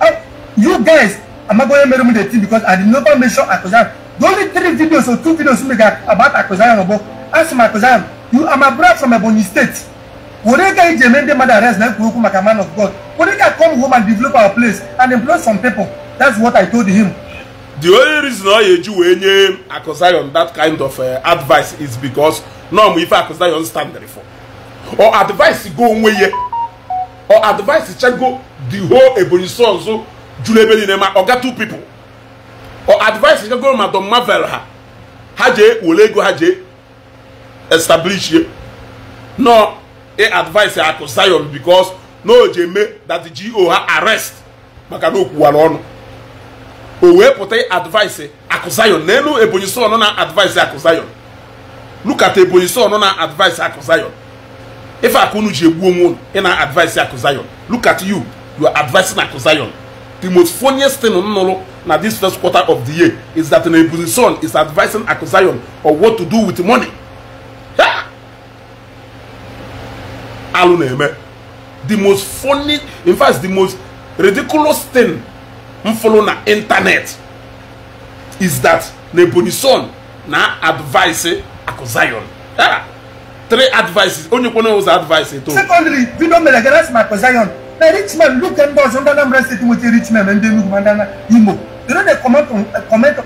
I, oh, you guys amagoye made me the thing because i did never mention akosan the only three videos or two videos wey make about akosan obo ask my akosan you are my brother from ebonyi state Orega Ijemende mother arrest like Kuruku like a man of God. Orega come home and develop our place and employ some people. That's what I told him. The only reason why you were name Akosayon that kind of uh, advice is because no, if Akosayon stand there for or advice go away. or advice chago the whole ebony so so julebeli na ma ga two people or advise chago madam marvel ha ha je wole ego ha je establish ye no e advise akụ zion because na o ji eme that the go ha arrest maka na okwuwara ọnụ o wee pụta advise akụ zion n'elu ebonyi son na advise akụ zion look at ebonyi son na advice akụ If aka unu ji egbu onwe unu ị na-advise akụ zion look at you you are advising akụ zion the most funniest thing nnụrụ na this first quarter of the year is that nebuzin son is advising akụ zion on what to do with money alụ na-eme the most funny in fact the most ridiculous thing m fụrụ na internet is that nebuzin son na advise akụ zion yeah. three advices onye kwene ụzọ advice eto secondary bido mere gara sị maka zion na rich man look ndị ọzọ ndị Anambra steeti nweta rich man ndị Enugu ma ndị Imo they uh, no dey comment on uh, comment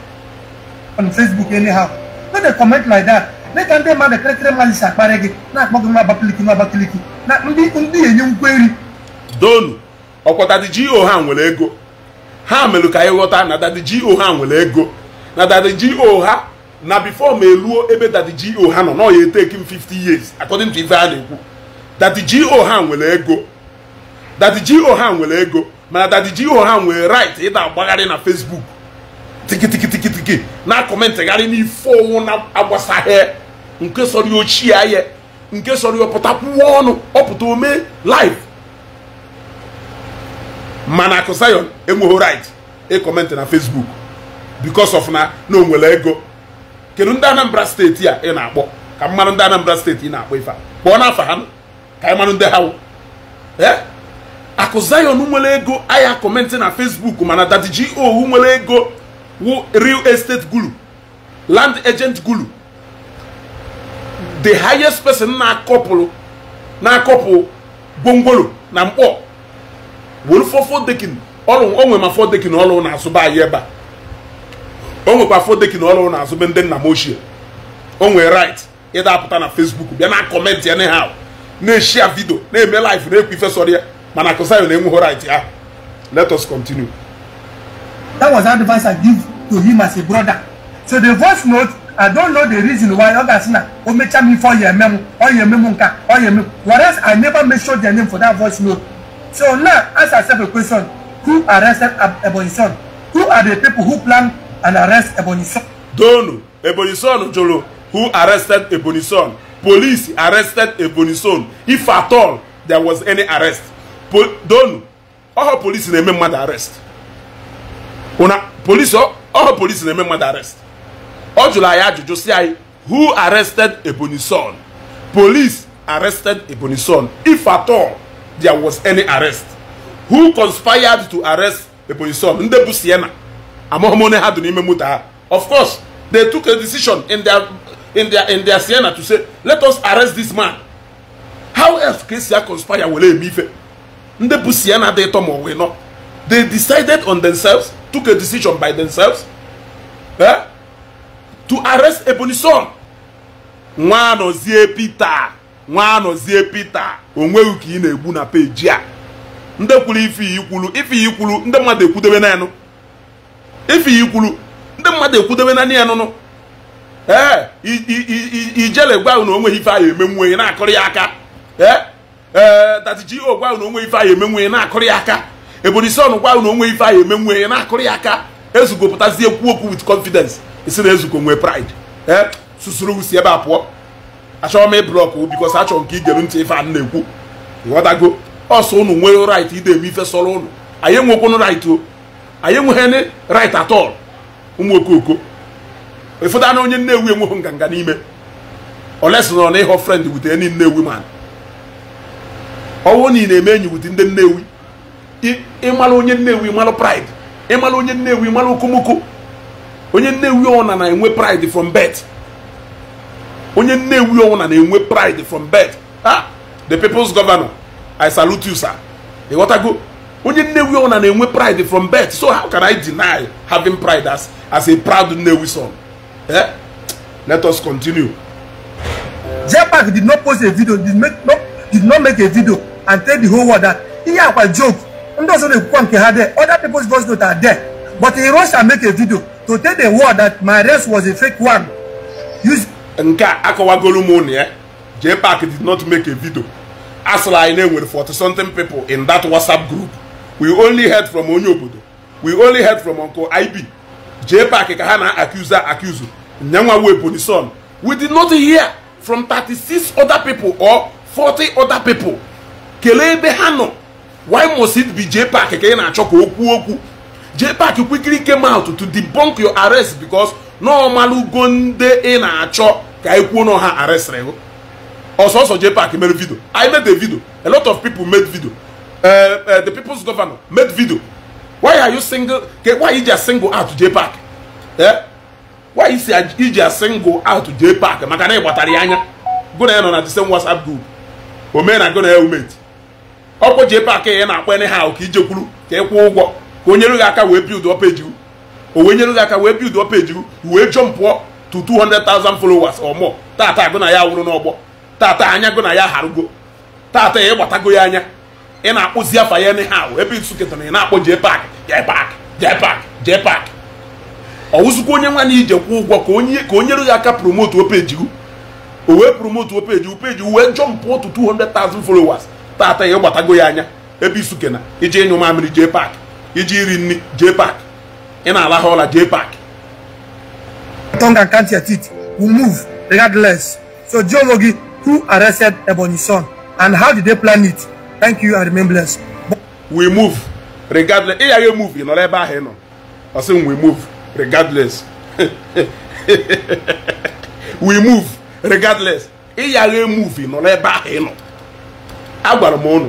on Facebook anyhow no dey comment like that mee ka ndị mmadụ kịrịkịrị mmalisi akparị gị na-akpọ gị nwa abakiliki nwa abakiliki na ndị ndị enye ngwa eri donu ọkwa go oh, ha nwere ego ha melụ ka anyị ghọta na dadi go oh, ha nwere ego na dadi go oh, ha na before ma eruo ebe dadi go ha nọ na ya eteki m 50 years according to ife a na-ekwu dadi go ha nwere ego dadi go ha nwere ego mana dadi go ha nwere right ịda agbagharị na facebook tikitikitikitikiti na kọmentịgharị n'ife ọnwụ na-agbasaghị nke sọrọ ochie ahịa nke sọrọ ọpụtakwuo ọnụ ọpụta ome live mana akụ akụsayon enweghị right ịkọmentị na facebook because of na na onwere ego kedu ndị anambra steeti e e e? a ị na-akpọ ka mmanụ ndị anambra steeti ị na-akpọ ife a kpọọ n'afa ha ka anyị manụ ndị ha akụ zion nwere ego ahịa kọmentị na facebook mana dadiji go nwere ego wu real estate guru land agent gulu the highest person na-akọpụrụ na-akọpụ gwongworo na mkpọ were ọrụ onwe ma fọ dekin ọrụ na-azụba anyị ebe a o nwekwa fodeki na ọrụ na-azụ ndị nna m ochie o nwee right ịdapụta na facebook bịa na kọmentị ya anyhow na-eshia vidio na-eme live na-ekwu ifesọrọ ya mana kụsayo na-enweghị right ahụ let us continue. that was advice i give to him as a brother so the voice note i don't know the reason why ọ sina. asị na o mechaa m ife ọ ya eme m ọ nka ọ ya whereas i never mention their name for that voice note so now ask yourself a question who arrested Ebonyi son who are the people who plan and arrest Ebony Son. Donu, Ebony Son Jolo, who arrested Ebony Son. Police arrested Ebony Son. If at all there was any arrest. Po Donu, all police na-eme mmadụ arrest. Una, police, all police arrest. Ọ jụrụ ajụjụ who arrested Ebony Son? Police arrested Ebony Son. If at all there was any arrest. Who conspired to arrest Ebony Son? Ndị Siena. amaghị onye ha dị n'ime moto ha of course they took a decision in their in their in their Siena to say let us arrest this man how else ka esi conspire were eme ife ndị bụ Siena dị ịtọ ma ọ wee nọ they decided on themselves took a decision by themselves eh? to arrest Ebony Son nwa anọzie Peter nwa anọzie Peter onweghị ka ị na-egbu na peji a ndị kwuru ife ikwulu ife ikwulu ndị mmadụ ekwudobe naanị ife kwuru ndị mmadụ ekwudobe na ya nụnụ ee ijele gwa na onwe ife ahụ emenwu onye na-akụrụ ya aka ee tatiji ogwa na onwe ife ahụ emenwu onye na-akụrụ ya aka ebori son gwa na onwe ife ahụ emenwu onye na-akụrụ ya aka ezugopụtazie ekwu okwu wit confidence isi na ezugo nwee pride ee susuru usi ebe a pụọ achọrọ m ịblọkụ bikos achọrọ nke igere ntị ife a na-ekwu ịghọtago ọsọ ụnụ nwere rait ide eme ife sọrọ ụnụ anyị enwekwunu rait o anyị enweghị right at all ụmụ okooko ụfọdụ anụ onye nne nnewi enweghị nganga n'ime olesi nọ na ịghọ frend wutere ndị nnewi ma ọnwụ niile eme enyi wute ndị nnewi ịmalụ onye nnewi ịmalụ pride ịmalụ onye nnewi ịmalụ okomoko onye nne nnewi ọna na-enwe pride from birth onye nne nnewi ọna na-enwe pride from birth ah the people's governor i salute you sir ịghọtago onye nnewi ọna na-enwe pride from birth so how can i deny having pride as as a proud nnewi son eh? let us continue. Jepak did not post a video did, make, no, did not make a video and tell the whole world that ihe akwa joke ndị ọzọ na-ekwukwa nke ha there other people's voice note are there but he rush and make a video to tell the world that my race was a fake one. Use nke a akọwagolu m ụnụ ya jpac did not make a video asịrị anyị na enwere 40 something people in that whatsapp group we only heard from onye obodo we only heard from uncle ib jee paaki ka ha na accuse accuse nyanwa wee son we did not hear from 36 other people or 40 other people kelee ebe ha nọ why must it be jee paaki ka ị na-achọ ka o kwuo okwu jee paaki quickly came out to debunk your arrest because n'ọmalụgo nde ị na-achọ ka anyị kwuo na ha arrest gụ ọsọsọ jee paaki mere video I made a video a lot of people made video Uh, uh, the people's governor made video why are you single why you just single out J Park eh why is single out J Park maka na ịgbatara anya go na nọ the same WhatsApp group na go na helmet J Park na ha ka ije kwuru ka ekwu kwụọ ụgwọ ka aka aka wee build up page jump pụọ to 200,000 followers or ya tata anya ya ya anya ị na-akpụzi afa ya anyhow ebe nsuketara ị na-akpọ jee pak jee pak jee pak jee pak ọwụzụkwa onye nwa na ije kwụ ụgwọ ka onye ka onye ya aka promote opeji peji o wee promote opeji peji o peji wee jọmpụ otu 200,000 followers tata ya gbatago ya anya ebe isuke na iji ịnyụ mamịrị jee pak iji iri nri jee pak ị na-alahụ ọla jee pak tongue and count your teeth will move regardless so geology who arrested Ebonyi son and how did they plan it Thank you, I remain blessed. We move regardless. Ị gaghị move ị nọrọ ebe ahụ ị nọ. Ọ sị we move regardless. we move regardless. Ị gaghị move ị nọrọ ebe ahụ ị nọ. Agwara m ụnụ.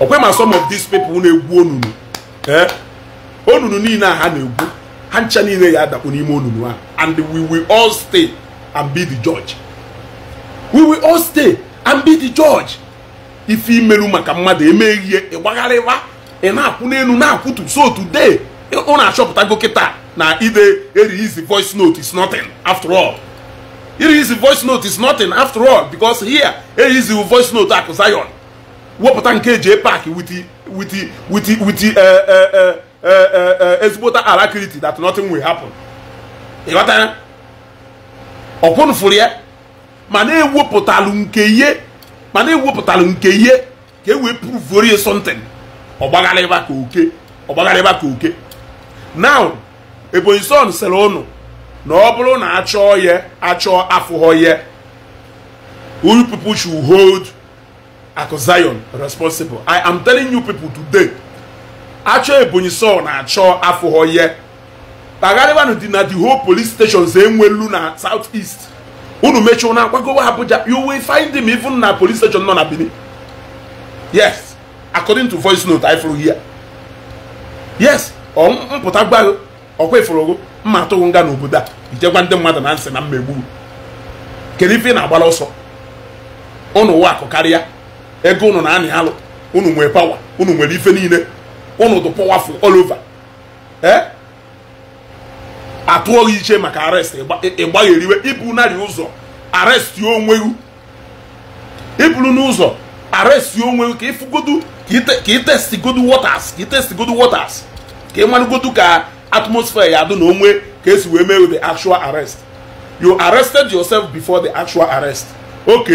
Ọkwe ma some of these people na-egwu onunu. Onunu niile a ha na-egwu. Ha ncha niile ya adakpu n'ime onunu ahụ. And we will all stay and be the judge. We will all stay and be the judge. ife imeru maka mmadụ emeghị ihe ịgbagharịwa ị na-akwụ n'elu na-akwụtu so today ụ na-achọpụtago kịta na ide erelease voice note is nothing after all erelease voice note is nothing after all because here erelease voice note akụ Zion wepụta nke eji epak with with with eh, eh, eh, ezigbota alacrity that nothing will happen ịghọtara ọkwụnụfụrụ ya ma na-ewepụtalụ nke ihe mana ewepụtara nke ihe ka e wee pruvuorie something ọgbaghara ka oke ọgbaghara ka oke now ebonyi son sịrị ụnụ na ọ bụrụ na achọọ ya achọọ afụghọ ya you people should hold Akụ Zion responsible i am telling you people today achọ ebonyi son na achọ afụghọ ya kpagharịwanụ dị na the whole police stations enwelu na south east unu mechie na akwagowa Abuja you will find him even na police station nọ na Benin yes according to voice note I flew here yes mpụta gbago ọkwa iforogo mma atụghị nga n'obodo a ijegwa ndị mmadụ na nsị na mmegbu kedu ife ị na-agbara ọsọ ụnụ ụwa akụ karịa ego ụnụ na-anị alụ unu nwere pawa unu nwere ife niile unu dị powerful all atụ gị iche maka arrest ịgbagheriwe iburu narị ụzọ arrest onwe gị iburu n'ụzọ arrest onwe ka ịfụgodu ka itestigodu waters ka itestigodu waters ka ị ka atmosphere ya dụ na onwe ka esi wee mee the actual arrest you arrested yourself before the actual arrest ok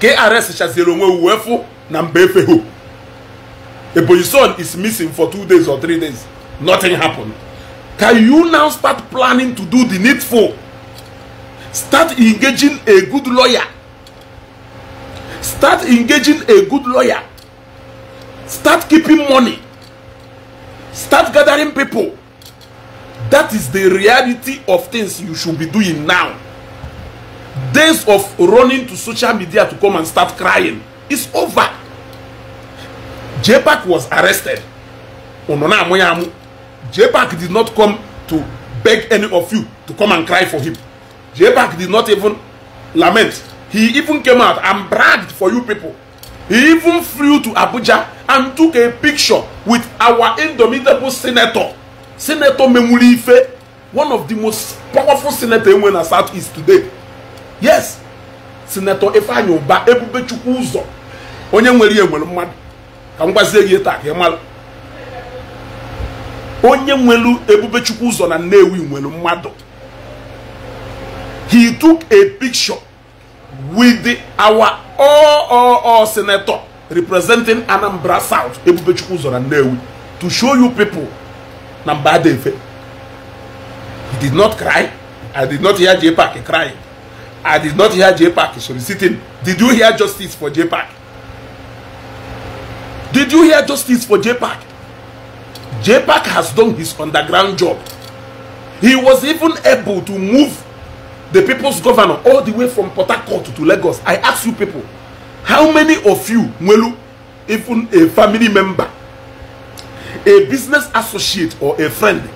ka ị arrest chaziere onwe uwe fụ na mba efeho ebonyi son is missing for two days or three days nothing happened. Can you now start planning to do the needful? Start engaging a good lawyer. Start engaging a good lawyer. Start keeping money. Start gathering people. That is the reality of things you should be doing now. Days of running to social media to come and start crying is over. JPAC was arrested. j did not come to beg any of you to come and cry for him. j did not even lament. He even came out and bragged for you people. He even flew to Abuja and took a picture with our indomitable senator, Senator Memuli one of the most powerful senators in the Southeast today. Yes, Senator Ifeanyi Uba Ebube Chukwu Uzo, onye nwere ihe mmadụ. Ka m gwazie gị taa ka ị mara. onye nwelu ebube chukwu ụzọ na nnewi nwelu mmadụ he took a picture with our all, all senator representing Anambra South ebube chukwu ụzọ na nnewi to show you people na mba adefe he did not cry i did not hear jpac crying i did not hear jpac soliciting did you hear justice for jpac did you hear justice for jpac JPAC has done his underground job. He was even able to move the people's governor all the way from Port Harcourt to Lagos. I ask you people, how many of you, Mwelu, even a family member, a business associate or a friend,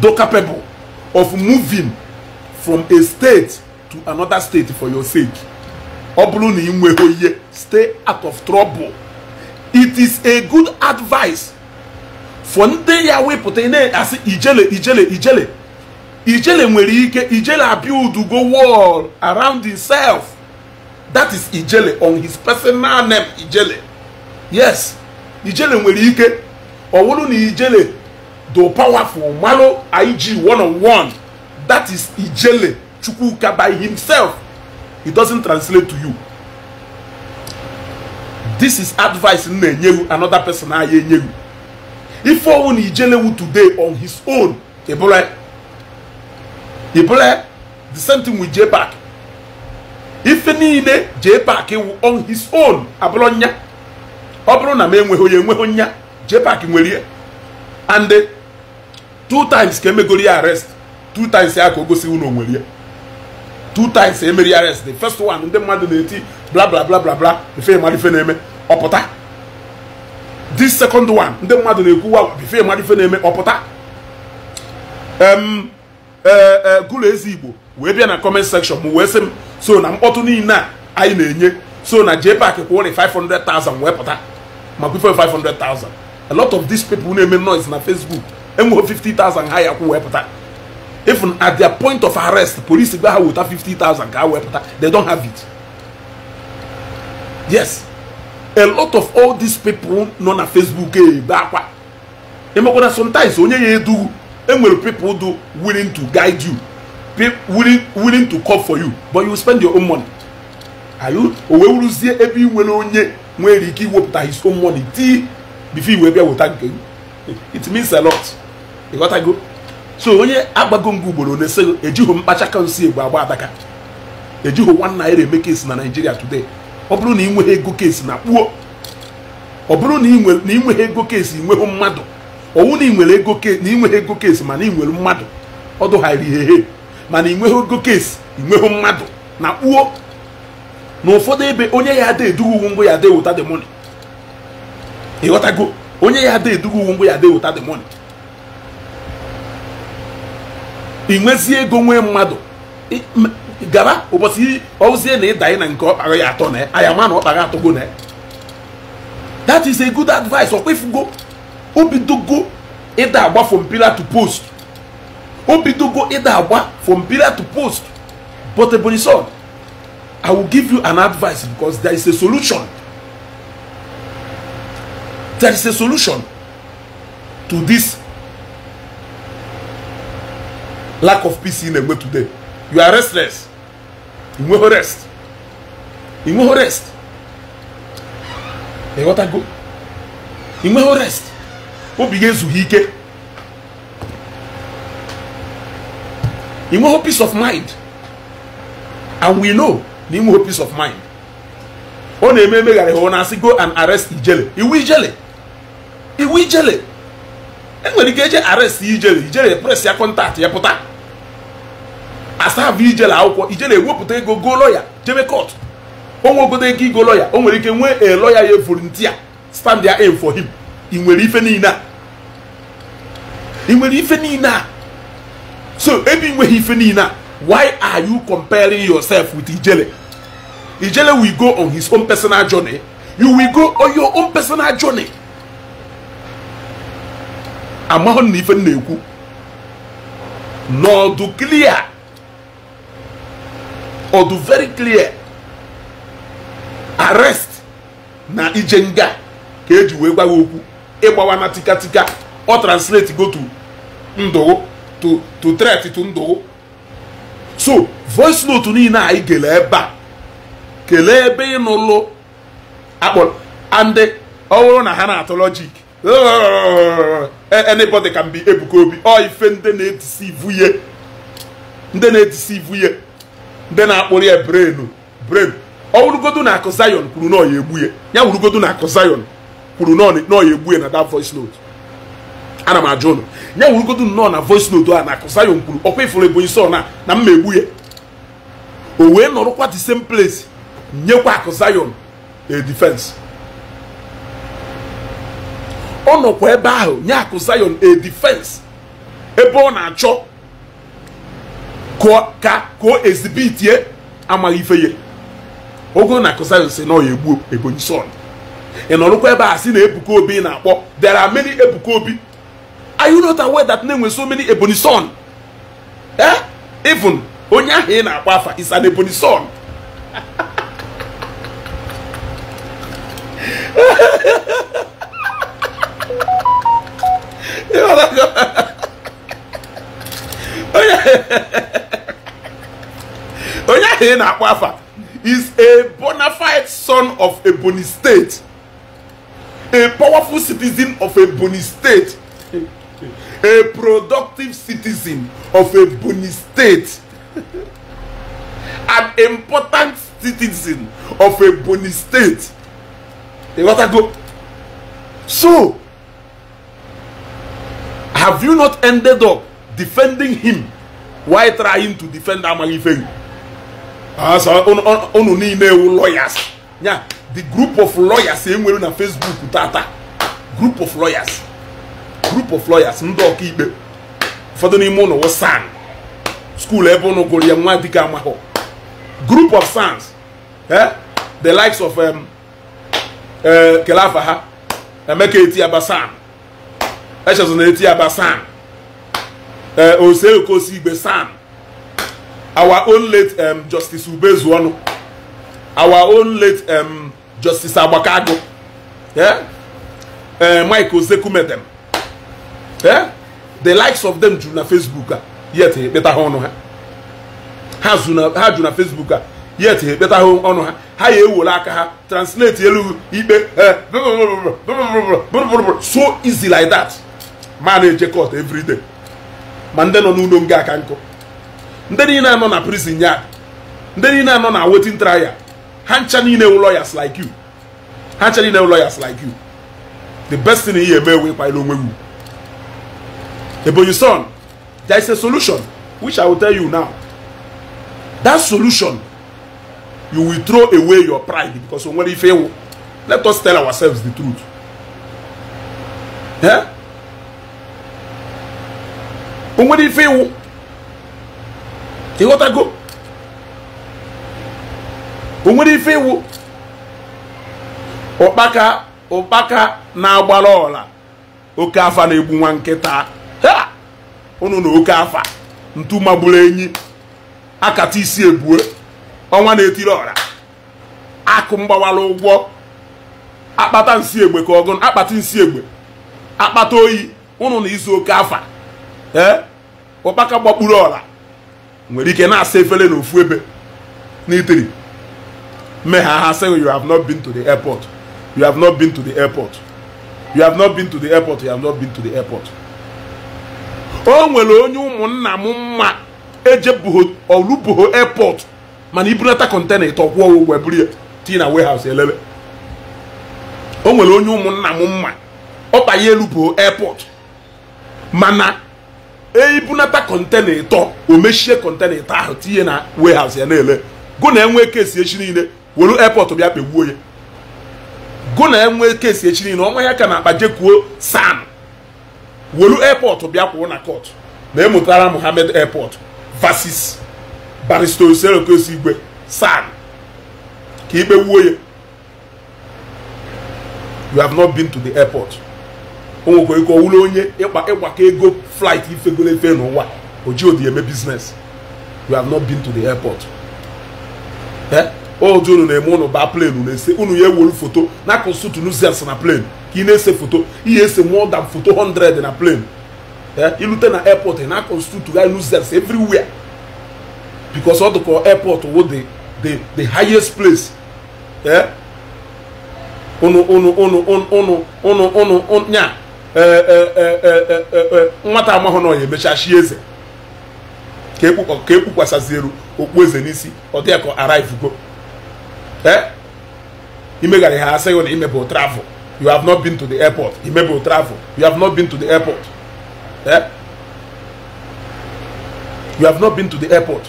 do capable of moving from a state to another state for your sake? Stay out of trouble. It is a good advice for ndị ya wepụta ị na-asị ijele ijele ijele ijele nwere ike ijele abuild go around himself that is ijele on his personal name ijele yes ijele nwere ike ọ na ijele do powerful malụ ig one on one that is ijele chukwuka by himself it doesn't translate to you this is advice m na-enye another person ahịa enye ife ọnwụ na ijelewu today on his own ebule ebule the same thing with park ife niile jpac wụ on his own abụrụ nya ọ bụrụ na m enweghị onye enweghị nya jpac nwere ihe and uh, two times ka emegoro ya arrest two times ya ka o gosi onwere ya two times emeri arrest the first one ndị mmadụ na-eti bla bla bla bla bla ife mara ife na-eme ọpụta this second one ndị mmadụ na-ekwuwa bifo mmadụ ife na-eme ọpụta e, e, gụlụ ezi igbo wee bịa na comment section m wee sị m so na mkpọtụ niile anyị na-enye so na JPAC kwụrụ 500,000 wee pụta ma bifo 500,000 a lot of these people na-eme noise na Facebook enweghị 50,000 ha ya kwụ wee pụta even at their point of arrest police gba ha weta 50,000 ka ha wee pụta they don't have yes a lot of all these people nọ na facebook ebe akwa emekwana sometimes onye ya edu enwere people do willing to guide you willing, willing to call for you but you spend your own money you o wee wuruzie ebe ị nwere onye nwere ike iwepụta his own money tii before iwee bịa weta nke it means a lot ịghọtago so onye agbago ngụ ugboro na eji ejighị mkpacha kansi egbe agba adaka ejighị one naira emeke si na nigeria today ọ bụrụ na ị nweghị ego kesi na kpuo ọ bụrụ na ị nweghị ego kesi nweghị mmadụ ọwụ na ị ego na ị nweghị ego kesi mana ị nwere mmadụ ọ dụghara ihe mana ị nweghị ego kesi ị nweghị mmadụ na kpuo na ụfọdụ ebe onye ya ada edughị uwe ngwa ya ada eweta the money ịghọtago onye ya ada edughị uwe ngwa ya ada eweta de money ị nwezie ego nwee mmadụ gara ụbọchị ozie na ịdanye na nke ọ ya atọ na aya ma na ọ atọgo na that is a good advice ọkwefugo obidogo ịda agba from pillar to post obidogo ịda agba from pillar to post but ebonyi son i will give you an advice because there is a solution there is a solution to this lack of peace in Egbe today you are restless inweghị rest inweghị rest go. ịghọtago inweghị rest obi gị ezughị ike inweghị peace of mind and we know na inweghị peace of mind ọ na-eme emegharị ha ọ na-asị go and arrest ijele iwu ijele iwu ijele enwere ike eje arrest ijele ijele press ya kọntaktị ya pụta asavụ ijele akwụkwọ ijele ewepụta ego go lọya jebe kọt onwe ego igo lọya o nwere ike nwee e lọya ya volunteer stand ya aim for him ị nwere ife niile a ị nwere ife niile a so ebe ị nweghị ife niile a why are you comparing yourself with ijele ijele will go on his own personal journey you will go on your own personal journey amahụ na ife na-ekwu n'ọdụ clear ọ dị very clear arrest na ije nga ka eji wee gwa okwu ịgbawa na tikatika ọ translate go to ndụ to to threat to ndụ so voice note niile anyị kelee ebe a kelee ebe ị nụlụ akpọrọ and ọhụrụ na ha na-atụ logic anybody can be Ebuka Obi ọ ife ndị na-etisi ivu ndị na-etisi ivu ndị na-akpụrụ ya brenu brenu ọ wụrụgodu na akụ Zion kwuru nọ ya egbu ya na akụ Zion kwuru nọ na voice ya wụrụgodu nnọọ na voice a na akụ Zion kwuru ọkwa ifuru ebonyi sọ na na mma egbu ya o wee nọrụkwa the same place nyekwa akụ Zion a defense ebe ahụ nye akụ Zion ebe ọ na-achọ ka o ezibitie amaghị ife ya ogo na kụsayọnsị na ọya egbu ebonyi sọn ị nọrụkwa ebe a si na ebuka obi na-akpọ there are many ebuka obi are you not aware that na-enwe so many ebonyi sọn ee eh? onye ahụ ị na-akpọ afa is an ebonyi sọn onye onye ahụ ị na-akpọ afa is a bona fide son of Ebonyi State a powerful citizen of Ebonyi State a productive citizen of Ebonyi State an important citizen of Ebonyi State The go. so have you not ended up defending him while trying to defend Amalife? Ah, unu niile ewu lawyers ya the group of lawyers enwere na Facebook tata group of lawyers group of lawyers ndị ọkaikpe ụfọdụ n'ime ụlọ san skuul ebe ụnụ gụrụ ya nwa dịka amahụ group of sons e the likes of eh, kelafa ha emeka eti aba san echezona eti aba san eh, oseokosi igbe san our own late um, Justice Ubezuonu, our own late um, Justice agbakago yeah? uh, Mike Ozekume Yeah? The likes of them do na Facebook, yet ha honor her. Ha do na Facebook, yet better honor her. Ha ya will aka ha translate yellow, eh, so easy like that. Manage eje court ma ndị nọ n'ụlọ nga nkụ ndị niile nọ na prison yard ndị niile nọ na waiting trial ha ncha niile wu lawyers like you ha ncha niile wu lawyers like you the best thing ihe eme ewe ịkwanyere onwe wu ebonyi son there is a solution which i will tell you now that solution you will throw away your pride because o nwere ife iwu let us tell ourselves the truth eh? o nwere ife iwu go o nwere ife iwu ụkpaka ụkpaka na-agbara ọla oke afa na-egbu nwa nkịta ha ụnụ na oke afa ntu magburu enyi akata isi ebue ọnwa na-etiri ọra akụ mgbawara ụgwọ akpata nsi egbe ka ọgụ akpata nsi egbe akpata oyi ụnụ na izu oke afa ee ụkpaka gbakpuru ọla nwere ike na-asa efere na ofu ebe n'itiri mee ha ha you have not been to the airport you have not been to the airport you have not been to the airport you have not been to the airport o nwere onye ụmụnna m mma eje olubuho airport mana ibunata kọntena ịtọ ọwụwa ụgwọ buru tii na warehouse elele o nwere onye ụmụnna m mma ọ banye elubuho airport mana eibunata kọntena ịtọ e o mechie kọntena ịtọ ahụ tinye na warehouse ya na-ele gụ na enwee kesi echi niile were airport bịa kpegbuo ya gụ na enwee kesi echi niile ọnwa ya ka na akpa jekuo san were airport bịa kwụrụ na court na emụtara Mohammed airport versus barrister Oselokosi Igwe san ka ikpe wuo ya you have not been to the airport o nwekwa ike onye ịgbakọ ego flight ifegolo efe n'ụwa o ji odi eme biznes you have not been to the airport eh? oji unu na-eme ụlọ baa plenu na-ese unu ya ewolu foto na nuzels na plane ka na-ese foto ihe ese more foto 100 na plane. ilute eh? na airport na kọnsụtuga nuzels everywhere because ọ airport wo the the the highest place ụnụ ụnụ ụnụ ụnụ ụnụ ụnụ Eh, eh, eh, nwata amahụ na ọnya emechachi eze ka ekpukwasazieru okpu eze n'isi ọ dị ya ka arrivego ha asị gị na imebụ travel you have not been to the airport imebụ travel you have not been to the airport you have not been to the airport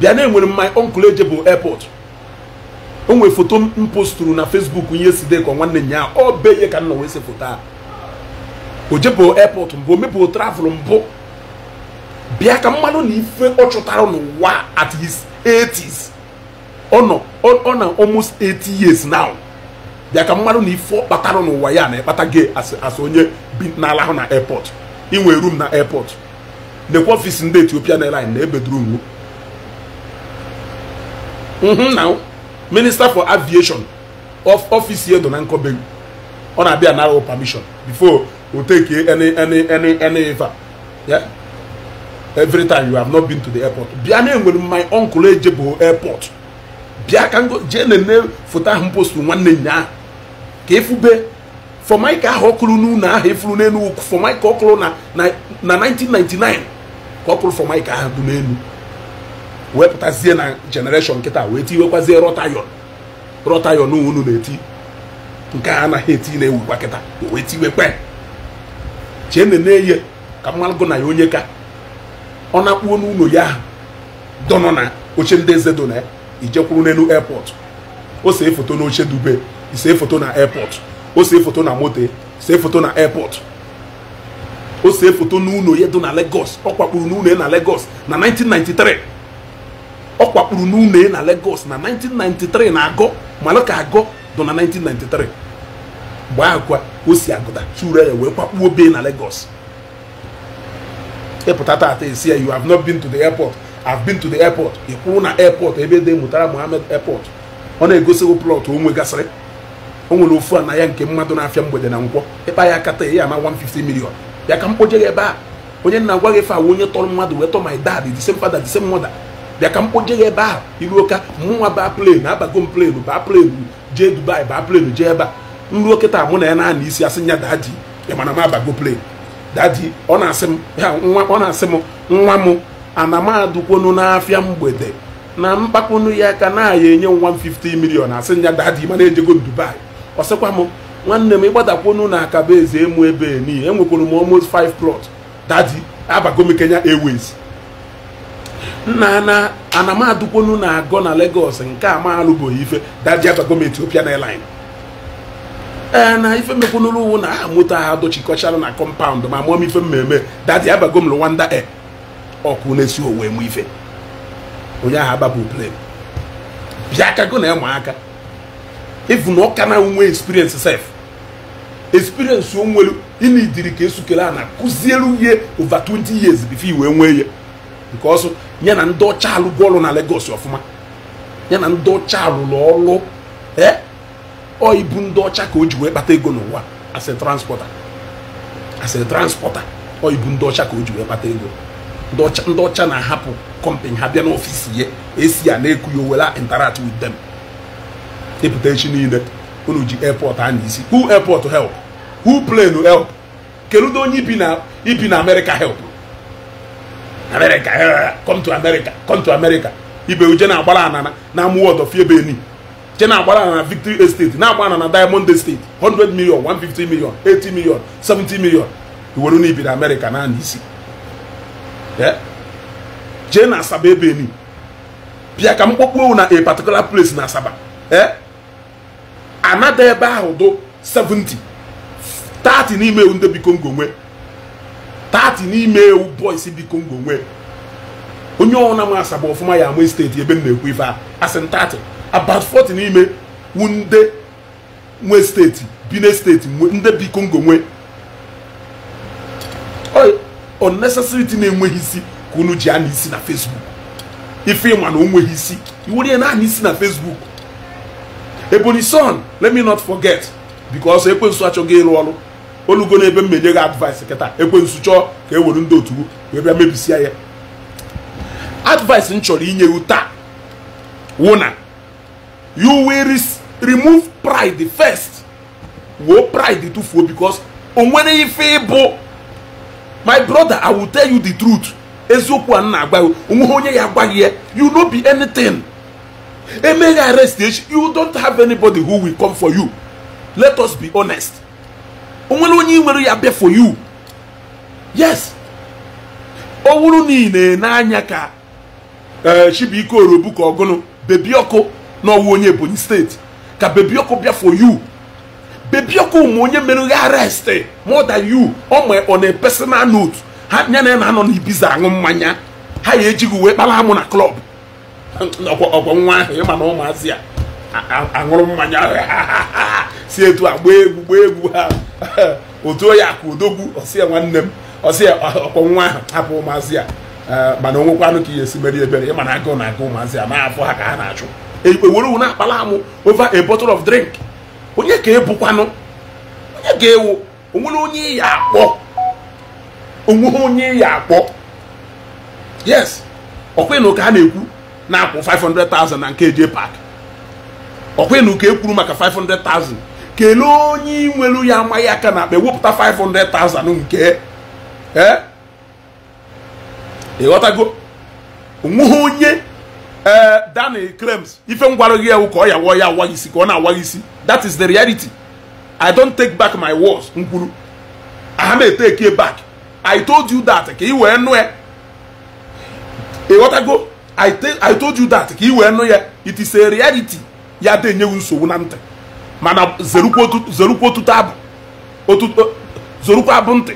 bịa na enwere my uncle eje bụ airport o nwere foto m posturu na Facebook ihe sideko nwanne nya ọ be ihe ka nna nọ wee se foto a o jebụ airport mbụ o mepụ travel mbụ bịa ka mmanụ na ife ọ chụtara n'ụwa at his 80s ọ nọ ọ na almost 80 years now bịa ka mmanụ na ife ọ kpatara n'ụwa ya na ịkpata gay as onye bi n'ala ahụ na airport inwe room na airport nekwa ọfịs ndị Ethiopian airline na ebe duru nwu minister for aviation of office edo na nkobelu ọ na-abịa nara permission before o take any any any any ever yeah every time you have not been to the airport bịa na enwere my uncle ejebo airport bịa ka ngo jee na-ene foto ahụ mpostu nwanne nya ahụ ka efube fọmaika ahụ ọkụrụ n'ụlọ ahụ efuru n'elu fọmaika ọkụrụ na 1999 ka ọkụrụ fọmaika ahụ bụ wepụtazie na jenereshọn nkịta wee tiwekwazie rọtayon rọtayon unu na-eti nke a anaghị eti na-ewukwa kịta wee tiwekwe chene na-eye ka mmalụgụ na ya onye ka ọ na-akpuo n'ụlọ ya dọnọ na oche ndị eze dona ya ijekwuru n'elu airport o see foto na oche dube isee foto na airport o see foto na moto see foto na airport o see foto n'ụlọ ya dị na Lagos ọ kwakpuru n'ụlọ ya na Lagos na 1993 ọ kwakpuru n'une na Lagos na 1993 na agọ mana ka agọ dụ na 1993 mgbe ahụ kwa o si agụta chure ya wee kwakpuo be na Lagos ịpụta tata esi ya you have not been to the airport have been to the airport ị kwụrụ na airport ebe dị Mutara Muhammed airport ọ na-egosigo plọt o gasịrị o nwere ofu na ya nke mmadụ na-afịa mgbede na nkwọ ịkpa ya kata ya ama 150 million ya ka m kpoje ebe a onye nna gwa gị fe awụ onye tọrọ mmadụ wee tọọ my dad the same father the same mother bịa ka m ya ebe ahụ iruo ka mụnwa baa plenu abago m plenu baa plenu jee dubai baa plenu jee ebe a nruo kịta mụ na ya naanị isi asị nya dadi ị m abago plenu dadi ọ na-asị m ọ na-asị m nwa m ana m adụkwonu n'afịa mgbede na mkpakponu ya ka na aya enye nwa m 50 milion asị ya dadi mana ejego dubai ọ sịkwa m nwanne m ịgbadakwonu na akaba eze emu ebe nii enwekwuru m almost 5 plot dadi abago m kenya airways nna na anamadukwonu na-agọ na Lagos nke a ma alụbụghị ife dajiaba gọọmenti Ethiopian Airlines ee na ife mekwanụrụ uwu na aha moto ha dochikọchara na kọmpaụnd ma mụọ m ife mmemme dadi abago m e ọkụ na-esi owe mụ ife onye ahụ ababu blem bịa kago na ịma aka ịfụ na ọka na nwe experience sef experience onwelu nwere ịna idiri ka esukere a na kụziere ihe over 20 years bifo iwe nwee ya nke ọsọ ya na ndị ọcha alụgo ọrụ na Lagos ọfụma ya na ndị ọcha alụrụ ọrụ ee ndị ọcha ka o ji wee kpata ego n'ụwa as a transporter as a transporter ndị ọcha ka o ji wee kpata ego ndị ọcha na-ahapụ kọmpani ha bịa n'ọfịs ya esi ya na-eku ya owela interact with them ịpụta e echi niile unu ji airport a na isi who help hu plen help keludo onye ibi na ibi na help America eh, come to America come to America ibe uje na-agbara anana na of ebe Benin je na-agbara na Victory Estate na-agbara na Diamond Estate 100 million 150 million 80 million 70 million iwere na ibiri America na isi eh? jee na Asaba Benin bịa ka m kpọkpuo na a particular place na Asaba eh? anada ebe ahụ dụ 70 30 n'ime ndị bi Congo nwe tati n'ime ewu bọis dị kongo nwee onye ọna m asaba ọfụma ya ama steeti ebe m na-ekwu ife a asị about 40 n'ime wunde nwe steeti bine steeti ndị bi kongo nwee unnecessary thing enweghị isi ka unu ji ana isi na facebook ife ịma na onweghị isi iwere ya naanị isi na facebook ebonyi son let me not forget because ekwensu achọghị ịrụ ọrụ olugo na ebe m menye gị advice kịta ekwensu chọọ ka e were ndị otu wee bịa mebisia ya advice m chọrọ inye gị taa wụ na you will remove pride first woo pride tụfuo because o nwere ife ịbụ my brother i will tell you the truth eziokwu a m na-agwa gị onweghị onye ya agwaghị ya you no be anything eme ya arrest echi you don't have anybody who will come for you let us be honest onwere onye i nwere ya bịa for you yes o wuru niile n'anya ka eh, Chibuike ka Ogunu bebioku n'ọwụ onye Ebonyi steeti ka bebioku bịa for you bebioku ma onye mere aresti arrest more than you ọ na personal note ha ya na ya na-anọ n'ibiza aṅụ mmanya ha ya ejighị uwe kpara amụ na klọb ọgwọ nwa ahụ ịma na ụmụazị ya aṅụrụ mmanya si etu a gbaa egwu gbaa egwu ha otu onye akụ odogwu ọsịa nwanne m ọsịa ọkpọ nwa ahụ hapụ ụmụazị a e, mana onwekwanụ ka ihe esi mere ebere ịma na agụ na-agụ ụmụazị a na-afụ ha ka ha na-achụ ewere uwe na-akpala amụ over a bottle of drink onye ka ebukwanụ onye ga-ewu onwere onye ya akpọ onweghị onye ya akpọ yes ọkwa na ụka a na-ekwu na-akwụ 500,000 na nke je pak ọkwa na ụka ekwuru maka 500,000 kelee onye nwere ya amaghị aka na akpa ewepụta 500,000 nke e? ịghọtago onweghị onye ee daniel krems ife ngwara gị ewu ka ọ yawa ya awa isi ka ọ na-awa isi that is the reality i don't take back my words nkwuru kwuru aha m eteke back i told you that ka ị wee nụ ya ịghọtago i told you that ka ị wee nụ ya it is a reality ya dị enyeghị nsogbu na ntị mana zerukwa otuto abụ zorukwa abụ ntị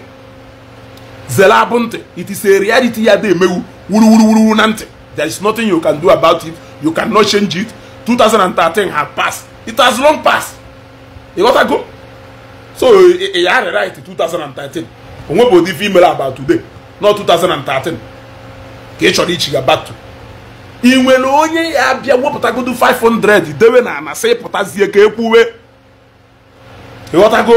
zere abụ ntị it is a reality ya dị emewu wuru na ntị there is nothing you can do about it you can no change it 2013 have passed it has long passed ị go so ị e, e, ya right 2013 onwe bụ ụdị ife imere about today not 2013 ka ị chọrọ ichiga back to i nwere onye ya bịa wepụtagodu 500 dewe na anasị sị pụtazie ka ekwuwe ịghọtago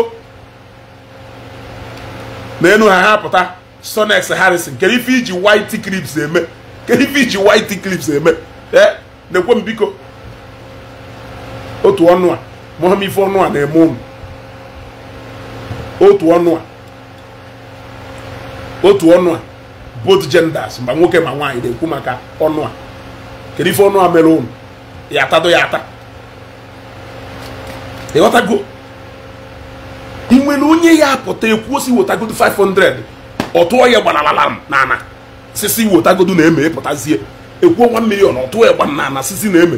n'enu ha ha sonex harrison kedu ife iji white clips eme kedu ife iji white clips eme ee na-ekwe m biko otu ọnụ a mụọ ife ọnụ a na-eme ụmụ otu ọnụ a otu ọnụ a both genders ma nwoke ma nwaanyị na-ekwu maka ọnụ a kedu ọnụ a mere ya atado ya ata ịghọtago e nwere onye ya apụta ekwuo si wetagodu 500 ọ ya gbalalalam nana sisi wetagodu na-eme ịpụtazie e ekwuo 1 million ọ na ana sisi na-eme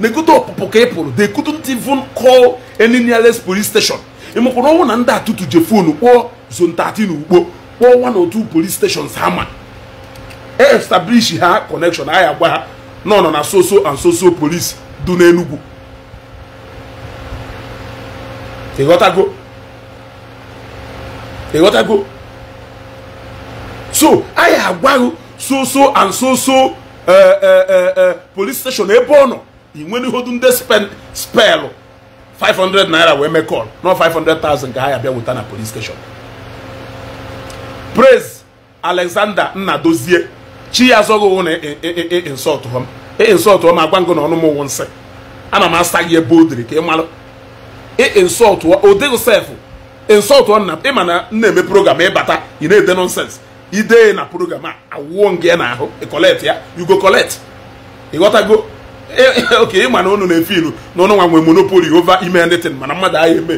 na-ekote ọpụpụ ka ị pụrụ they couldn't even call any nearest police station ọnwụ e na ndị atụtụ je fonu kpọọ 13 ugbo kpọọ one or police stations establish ha connection anyị agwa ha nọ nọ na soso and soso police dị n'enugwu ịghọtago ịghọtago so anyị agwaghị soso and soso eh, eh, eh, police station ebe ọ nọ inwenihodu ndị spelụ 500 naira wee mee call nọ 500,000 ka ha ya bịa weta na police station praise alexander nnadozie chi ya azọghị na insọtụ m insọtụ m agwa ngụ na ọnụ m ụwụ nsị na m asa gị ebe o diri ka ị malụ sefụ o dịghị sef insọtụ na ịma na na-eme program ịbata ị na-ede nonsens idee na program a awụọ ngị ya n'ahụ ịkọlet ya yugo kọlet ịghọtago oke ịma na ụnụ na-efe ilu na ụnụ nwa nwe monopoli ova ime ndịtin mana mmadụ agha eme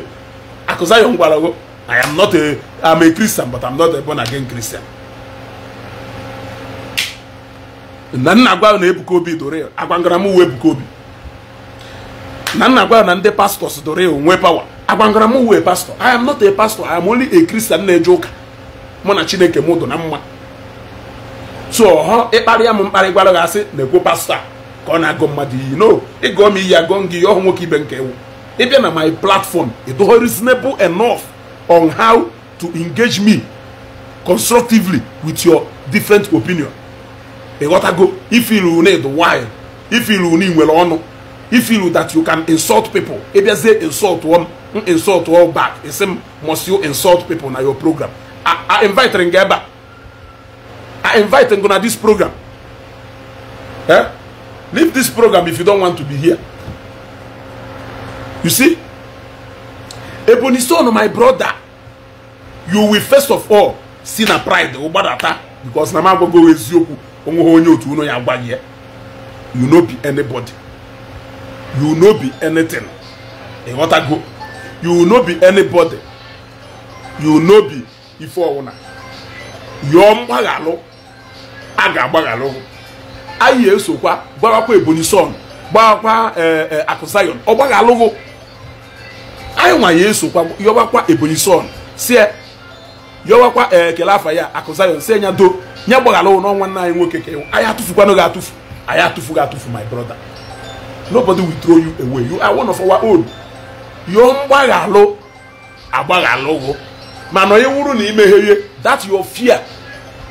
akụza ya ngwarago I am not a a Christian but I'm not a born again Christian na nna agwa na ebuka obi dore agwangara mụ uwe ebuka obi na nna na ndị pastọs dore onwe pawa agwangara mụ uwe pastọ i am not a pastor i am only a christian na-eje ụka mụ na chineke m dụ na mma so ọhọ ịkparịa m mkparị gwara gị asị na-ekwo pastọ ka ọ na-agụ mmadụ iyi no ịgụọ m iyi agụọ m gị ihe ọhụ nwoke ibe nke ewu ịbịa na my platform ịdụghọ reasonable enough on how to engage me constructively with your different opinion ịghọtago ifiru need wine ifiru na inwere ọnụ ifiru that you can insult people ịbịazie insult m insult all back isi m must you insult people na your program I invite gị ebe a I invite gị na this program eh? leave this program if you don't want to be here you see Ebony son my brother you will first of all see na pride ụgbadata because na m agwago eziokwu onweghị onye otu unu ya gwa gị you no be anybody you no be anything ịghọtago you no be anybody you no be ife ọwụna yọọ mgbaghalụ a ga-agbaghalụ anyị esokwa gbawakwa ebonyi son gbawakwa eh, eh, akụsayon ọ gbaghalụghụ anyị nwa ya esokwa yọwakwa ebonyi son si yọwakwa ekele eh, afa ya akụsayon ya do nye gbaghara ụnọ nwanne anyị nwoke ka anyị atụfukwana gị atụfu anyị atụfu gị atụfu my brother nobody will throw you away you are one of our own yo mgbaghalụ agbaghalụgo mana onye wuru na imegherie that your fear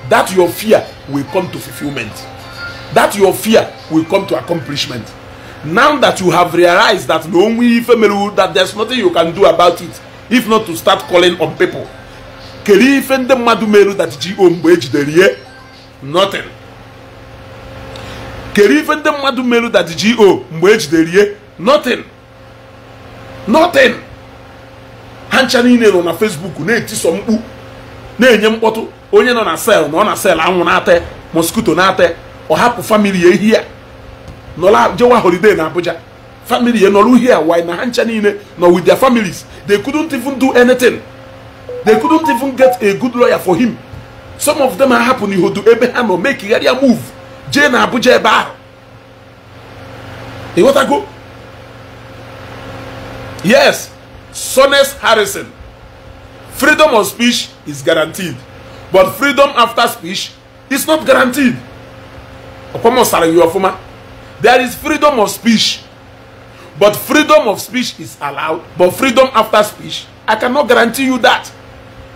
that your fear will come to fulfillment that your fear will come to accomplishment now that you have realized that the only family that there's nothing you can do about it if not to start calling on people kedu ife ndị mmadụ mere that ji o mgbe ejidere ihe nothing kere ife ndị mmadụ meru that go mgbe ejidere ihe nothing nothing ha ncha niile nọ na Facebook na-etiso mkpu na-enye mkpọtụ onye nọ na sel na ọ na sel anwụ na-ata mosquito na-ata ọ hapụ famili ya ihe ya nọla jewa holiday na Abuja family ya nọrọ uhie why na ha ncha niile nọ with their families they couldn't even do anything they couldn't even get a good lawyer for him some of them ahapụ n'ihodo ebe ha nọ mekigharịa move jee na abuja ebe ahụ ịghọtago yes sones harrison freedom of speech is guaranteed but freedom after speech is not guaranteed ọkpọmọsara gị ọfụma there is freedom of speech but freedom of speech is allowed but freedom after speech i cannot guarantee you that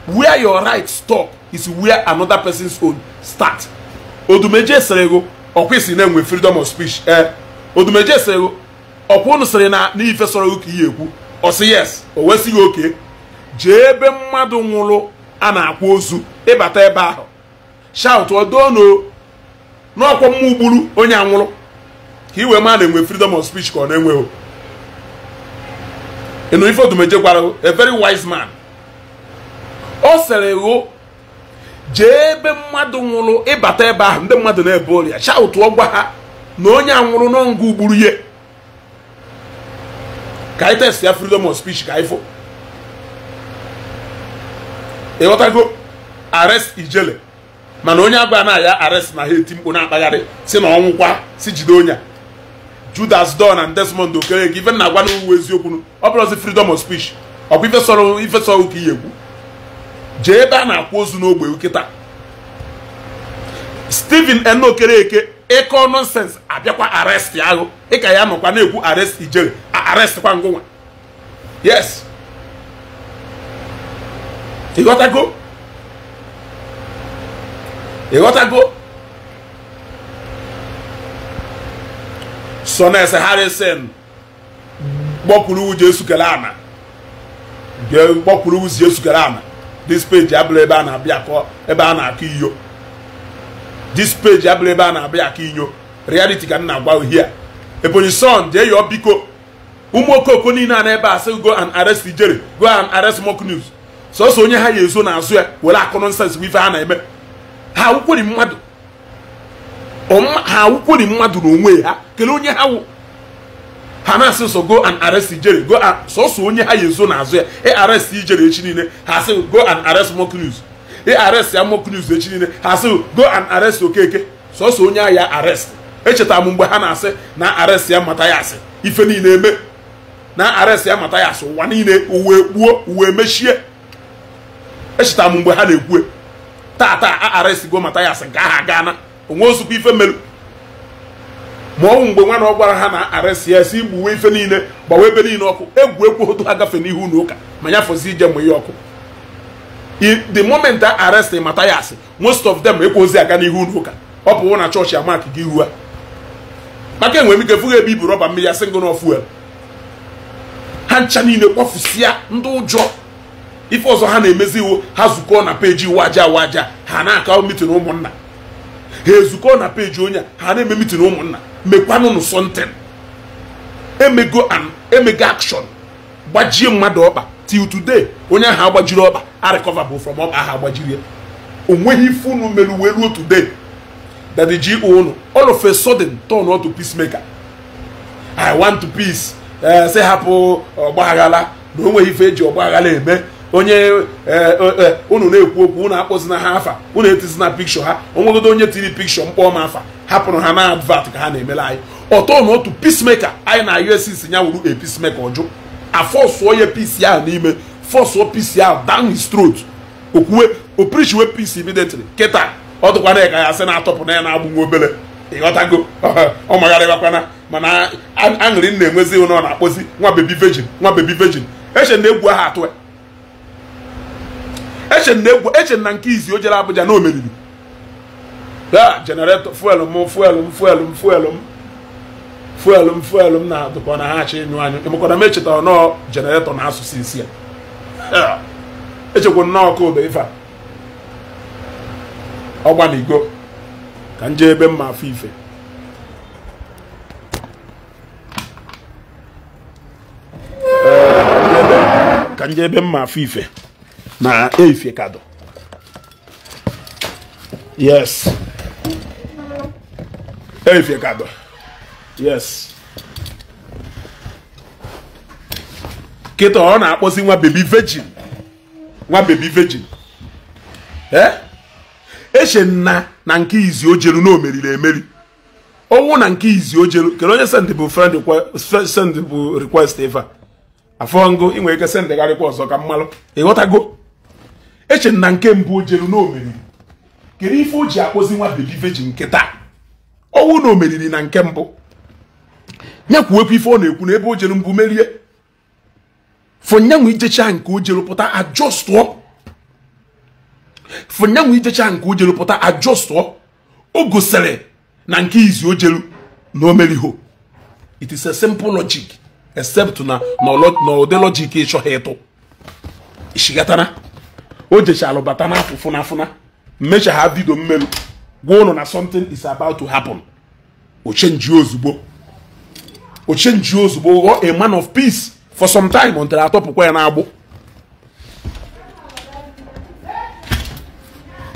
where your right stop is where another person's own start odumeje sịrị ego ọkwa isi na-enwe freedom of speech ee eh? odumeje sịrị ego ọkwa unu sịrị na n'ife sọrọ ego ka ihe ekwu ọ sị yes o wesịghị oke jee ebe mmadụ nwụrụ a na-akwa ozu ịbata e ebe ahụ shout odono n'ọkwa mma ugburu onye anwụrụ ka iwe ma na-enwe freedom of speech ka ọ na-enweghị ịnụ ife odumeje gwara a very wise man ọ sịrị ego jee ebe mmadụ nwụrụ ịbata ebe ahụ ndị mmadụ na ebe ọrịa chaụtụọ gwa ha na onye a nwụrụ n'ọngụ gburu ihe ka anyị test ya freedom of speech ka ifo ịghọtago arest ijele mana onye agba na ya arest na ha eti mkpu na-akpagharị si na ọnwụkwa si jide onya Judas Don na Desmond Okereke ife na-agwa n'uwe eziokwu ọ bụrụ ozi freedom of speech ọ bụ ife sọrọ ka ihe egwu jee ebe a na-akwụ ozu n'ogbe nkịta Stephen Enokereke ịkọ nọnsensị abịakwa arestị ahụ ịka ya nọkwa na-ekwu arrest ijere arestị kwa ngụnwa yes ịghọtago ịghọtago Sones Harrison gbọkwuru uji esukere ana gbọkwuru uji esukere ana dis peji abụrụ ebe a na-abịa akọ ebe a na-akọ iyo dis peji abụrụ ebe a na-abịa akọ inyo reality ka m na-agwa uhie a ebonyi son jee yọọ biko ụmụ okoko niile a n'ebe a sị go and arrest ijere go and arrest mock news sọsọ onye ha ya ezo n'azụ ya were akụ nọnsens bụ ife ha na-eme ha awụkweri mmadụ ha awụkweri mmadụ n'onwe ha kelee onye ha wụ ha na-asị so go and arrest ijere go sọsọ onye ha yezo n'azụ ya ị ịarrest ijere echi niile ha asị go and arrest ị ịarrest ya Mokrius echi niile ha asị go and arrest Okeke sọsọ onye a ya arrest echetara m mgbe ha na-asị na arrest ya mata ya asị ife niile eme na arrest ya mata ya asị ụwa niile uwe gbuo uwe mechie echeta m mgbe ha na-ekwu taata a arrest go mata ya asị gaa ha gaa na onwe ozugbo ife melu ma ọnwụ mgbe nwana ọ gwara ha na arịsịasị igbuwe ife niile gbawa ebe niile ọkụ egwu egwu ha agafe n'ihu na ụka ma ya fọzi ije mgbe ihe ọkụ the moment a arrest mata ya asị most of them ekwozi aga n'ihu na ụka ọ pụwo na chọọchị amak gị ihu a maka enwere m ike fụghị ebe ibu rọba mmiri ya singl of fuel ha ncha niile kpọfusịa ndị ụjọ ife ọzọ ha na-emezi iwu ha zukọọ na peji waja waja ha na-akọ mitin ụmụnna ha ezukọọ na peji onye ha na-eme mitin ụmụnna mekwanụnụ sọntịn emego an emego akshọn gbajie mmadụ ọkpa till today onye ahụ agbajiri ọkpa arịkọva bụ from ọkpa ahụ agbajiri o nweghị ife unu mere uwe ruo today that ji unu all of a sudden turn out to peacemaker i want to peace eh, say hapụ ọgbaghara na o nweghị ife eji ọgbaghara eme onye e, e, e, unu na-ekwu okwu unu akpọzina ha afa unu etizina pikshọ ha onwegodo onye tiri pikshọ mkpọọ ma afa hapụrụ ha na advat ka ha na-emela anyị ọtọ na otu pismeka anyị na uss ya wuru a pismeka ọjụ afọsụọ ya pisi ahụ n'ime fọsụọ pisi ahụ down his throat okwuwe oprichiwe pisi immediately kịta ọ dụkwana ka ya sị na-atọpụ na ya na-agbụ nwa obele ịghọtago ọ magharịbakwana mana aṅụrị nna-enwezi ụnọ na-akpọzi nwa bebi vejin nwa bebi vejin eche na egwu ahụ atụ eche na egwu echen na nke izi o jere Abuja na o ya jeneretọ fuel m fuel m fuel m fuel m fuel m fuel m na-adụkọ na ha achọ ịnyụ anyụ emekwara m echetara nọọ jeneretọ na asụsụ isi ya echekwa nnọọ ka obe ife ọgbanigo ka m jee ebe mma afọ ife ka m jee ebe mma afọ ife na Eificado. Yes. Eificado. Yes. kịta ọ na-akpọzi nwa bebi virgin nwa bebi virgin ee eche nna na nke izi ojelu na omeriri emeri ọnwụ na nke izi ojelu kedu onye send bụ friend send bụ request eva afọ ngụ ị nwere ike sendegharịkwa ọzọ ka mmalụ ịghọtago eche na nke mbụ o jelu kedu ife o ji akpọzi nwa bebi veji nke taa ọnwụ na omeriri na nke mbụ nyekwuwekwa ife ọ na-ekwu na ebe o jelu mbụ merie fonyanwụ ijecha nke o jelu pụta ajọstụọ fonyanwụ ijecha nke o jelu pụta ajọstụọ o gosiri na nke izi o na omeriho meriho it is a simple logic except na na ụdị logic ịchọghị ịtụ ishigatara o jechalụ bata n'afụ fụna fụna mmecha ha vidio mmelu gwa ụnụ na something is about to happen o chenji ozugbo o ozugbo ghọọ a man of peace for some time until atọpụkwa ya n'agbụ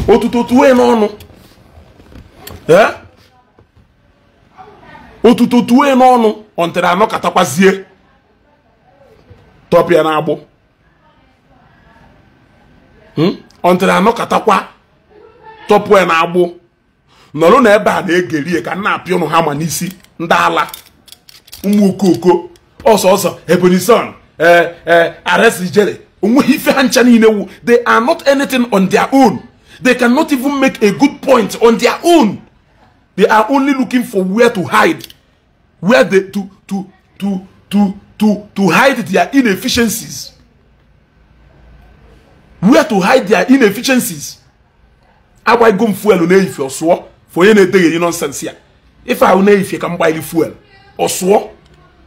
otuto tuwe n'ọnụ otuto eh? tuwe n'ọnụ until anọkatakwazie tọpịa n'agbụ Hmm? ọntụrụ katakwa tọpụ ya na-agbụ nọrọ na ebe a na-egeri ka nna apịa ụnụ ha ma n'isi ndị ala ụmụ okoko ọsọ ọsọ ebonyi sun e, e, aresijere onweghị ife ha ncha niile wu they are not anything on their own they cannot even make a good point on their own they are only looking for where to hide where they to to to to to to hide their inefficiencies where to hide their inefficiencies agbaghịgo m fuel na-eyifie ọsụọ for onye na-edegheri nọnsensị ya ife ahụ na-eyifie ka m gbaghịrị fuel ọsụọ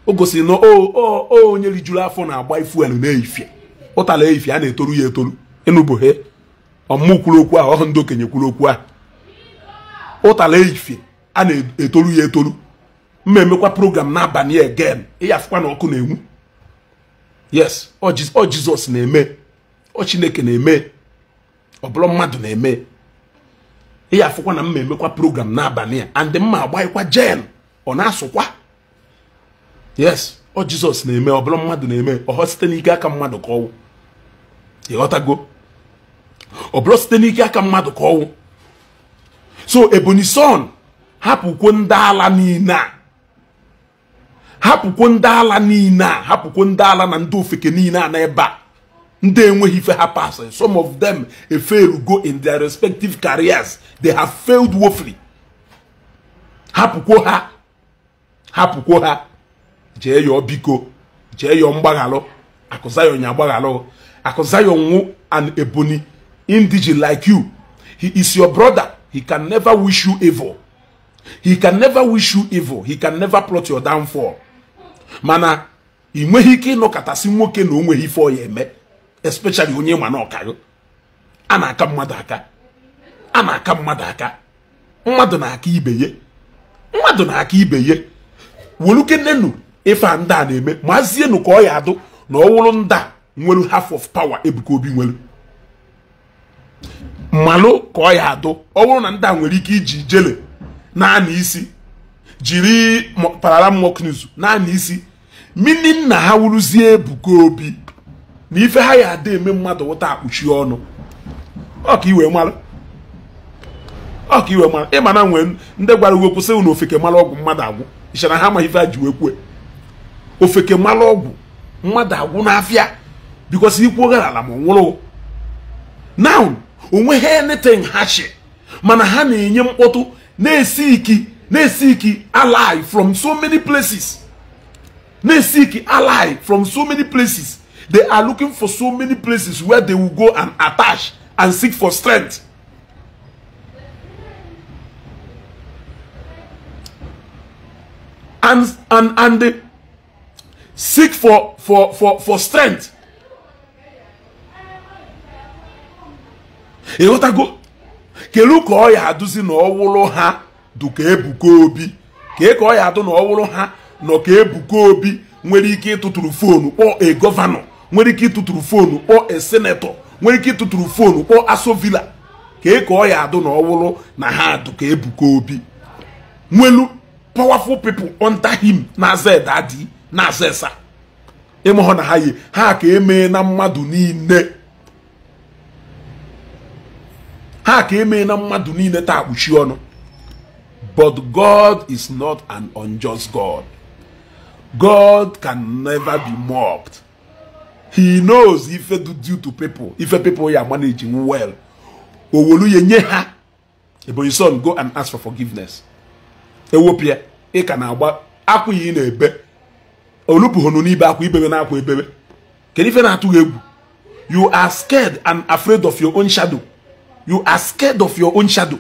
o gosiri na o onye rijuru afọ na-agba fuel na-eyifie ụtala eyifie a na-etoru ya etoru ịnụbụhe ọmụmụ kwuru okwu ahụ ọhụ ndị okenye kwuru okwu ahụ ụtala eyifie a na-etoru ya etoru mma emekwa program n'abalị egen ịyafụkwa na ọkụ na-enwu yes ọ jizọs na-eme ọ chineke na-eme ọ bụrụ mmadụ na-eme ihe afụkwa na mma emekwa program n'abalị a and mma agbaghịkwa jen ọ na-asụkwa yes ọ jizọs na-eme ọ bụrụ mmadụ na-eme ọhọ site n'ike aka mmadụ ka ọnwụ ịghọtago ọ bụrụ site n'ike aka mmadụ ka ọnwụ so ebonyi son hapụkwo ndị ala niile a hapụkwo ndị ala niile a hapụkwo ndị ala na ndị ofeke niile a na ebe a ndị enweghị ife ha some of them eferu go in their respective careers they have failed woefully hapụkwo ha hapụkwo ha jee yọọ biko jee yọọ mgbaghalụ Akụ ya agbaghalụ Akụ Zion nwụ Ebonyi indigene like you he is your brother he can never wish you evil he can never wish you evil he can never plot your downfall mana ị nweghị ike ịnọkọtasị nwoke na o nweghị ife ọ ya eme especially onye ma na a na-aka mmadụ aka a na-aka mmadụ aka mmadụ na-aka ibe ye mmadụ na-aka ibe ye welukennenu ife a ndị a na-eme mazienu ka ọ ya adụ na ọ wụrụ ndị a nwelu half of power Ebuka Obi nwelu mmalụ ka ọ ya adụ ọ wụrụ na ndị a nwere ike iji jele naanị isi jiri parala moknizu naanị isi mini nna ha wuruzie Ebuka Obi na ife ha ya ada eme mmadụ ụta akpuchi ọnụ ọka iwe mara ọka iwe mara ịma na nwere ndị gwara uwe kwụsị na ofeke mara ọgwụ mmadụ agwụ ịchara ha ma ife ha ji wee kwue ofeke mara ọgwụ mmadụ agwụ n'afịa bikọsi ikwu ala ma nwụrụ now onwe anything ha shi mana ha na-enye mkpọtụ na-esi iki na-esi iki alive from so many places na-esi iki from so many places They are looking for so many places where they will go and attach and seek for strength. And, and, and they seek for, for, for, for strength. kelu ka ọ ya adụzi na ọwụrụ ha dụ ka ebuka obi ke ka ya adụ na ọwụrụ ha nọ ka ebuka obi nwere ike ịtụtụrụ foonu kpọọ a governor. nwere ike ịtụtụrụ fonu kpọọ esenetọ nwere ike ịtụtụrụ fonu kpọọ asovila ka e ọ ya adụ na ọwụrụ na ha dụ ka ebuka obi nwelu powerful people under him na-aza adị na-aza esa ịmụhụ na ha yi ha ka emee na mmadụ niile ha ka emee na mmadụ niile taa kpuchi ọnụ but God is not an unjust God God can never be mocked he knows ife do due to people ife people ya managing well owoluye nye ha ebonyi son go and ask for forgiveness ewopịa ị ka na-agba akwụghị ị na-ebe olupụghonu n'ibe akwa ibebe na akwa ebebe kedu ife na-atụghị egwu you are scared and afraid of your own shadow you are scared of your own shadow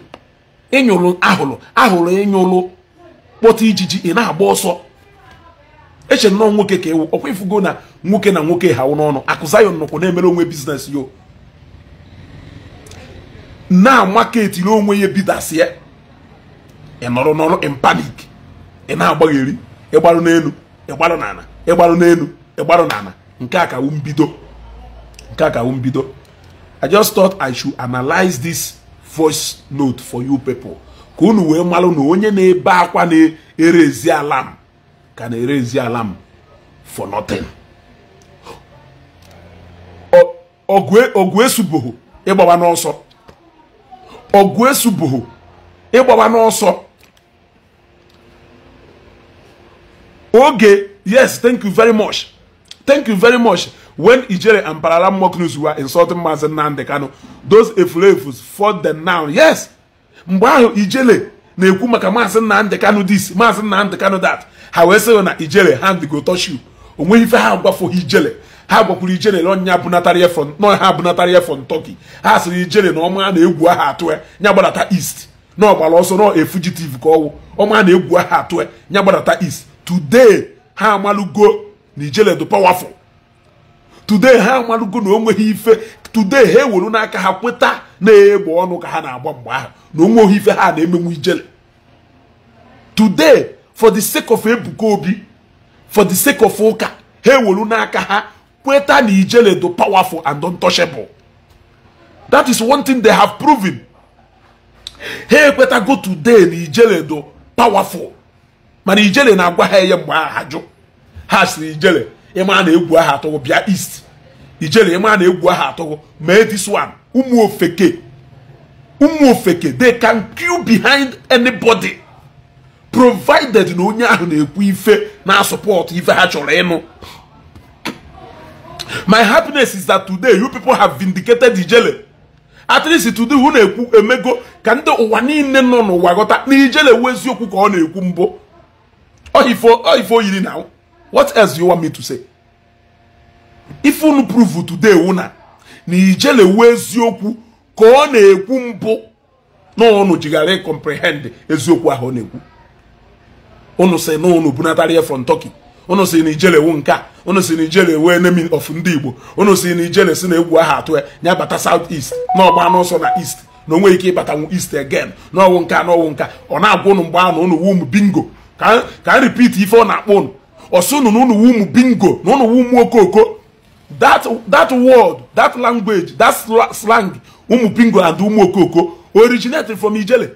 ịnyụrụ ahụrụ ahụrụ ịnyụrụ kpọta ijiji ị na-agba ọsọ eche nnọọ nwoke ka ewu ọkwa ifugo na nwoke na nwoke ha n'ọnụ akụzayọ Zion na-emere onwe biznes yo na maketiri onwe ya bidasie ị nọrọ n'ọrụ in panic ị na-agbagheri ịgbarụ n'elu ịgbarụ n'ala ịgbarụ n'elu ịgbarụ n'ala nke a kawu mbido nke a kawu mbido I just thought I should analyze this voice note for you people ka unu wee malụ na onye na-ebe akwa na-erezi alam ka na-erezi ala m for nothing ogwe subuhu ịgbawa n'ọsọ ọgụ esuboho ịgbawa n'ọsọ oge yes thank you very much thank you very much when ijere and parala mock news were insulting Mazi Nnamdi Kanu those efulefu fought them now yes mgbe ahụ ijele na-ekwu maka maazị Nnamdị Kanụ dis maazị Nnamdị Kanụ dat ha wee sịrị na ijele hand go touch you o nweghị ife ha agwafoghị ijele ha gwakwuru ijele na ọnya ya nọ ha abụnatara ya fọn tọki ha sịrị ijele na ọma na-egwu aha atụ ya nya gbadata east na ọgbara ọsọ nọ efugitive ka ọwụ ọma na-egwu aha atụ ya nya gbadata east today ha amalụgo na ijele dị powerful today ha amalụgo na o nweghị ife today ha ewuru n'aka ha kweta na egbo ọnụ ka ha na-agba mgbe ahụ na onwe ohi ife ha na-emenwu ijele today for the sake of Ebuka Obi for the sake of ụka ha ewelu n'aka ha kweta na ijele do powerful and untouchable that is one thing they have proven ha ekwetago today na ijele do powerful mana ijele na-agwa ha ihe mgbe aha ha jụ ha siri ijele ịma na egwu aha atọghọ bịa east ijele ịma na egwu aha mee this one ụmụ ofeke ofeke they can queue behind anybody provided na onye ahụ na-ekwu ife na support ife ha chọrọ ịnụ my happiness is that today you people have vindicated ijele at least today who na-ekwu emego ka ndị ụwa niile nọ n'ụwa ghọta na ijele wu eziokwu ka ọ na-ekwu mbụ ọhifo yiri na what else you want me to say if unu prove today wụ na ijelewu eziokwu ka ọ na-ekwu mbụ na ụnụ jighara ịkọmprehend eziokwu ahụ ọ na-ekwu ụnụ si na ụnụ bunatara ya from Turkey ụnụ si na ijelewu nke a ụnụ si na ijelewu enemi of ndị Igbo ụnụ si na ijele si na egwu aha atụ ya ya bata south east na ọgba n'ọsọ na east na onwe ike ịbatanwu east again n'ọnwụ nka n'ọnwụ nka ọ na-agwa ụnụ mgbe ahụ ụnụ wum bingo ka m repeat ife ọ na-akpọ ụnụ ọsụ ụnụ na ụnụ wum bingo na ụnụ wum okooko. that that word that language that slang umu bingo and umu okoko originated from ijele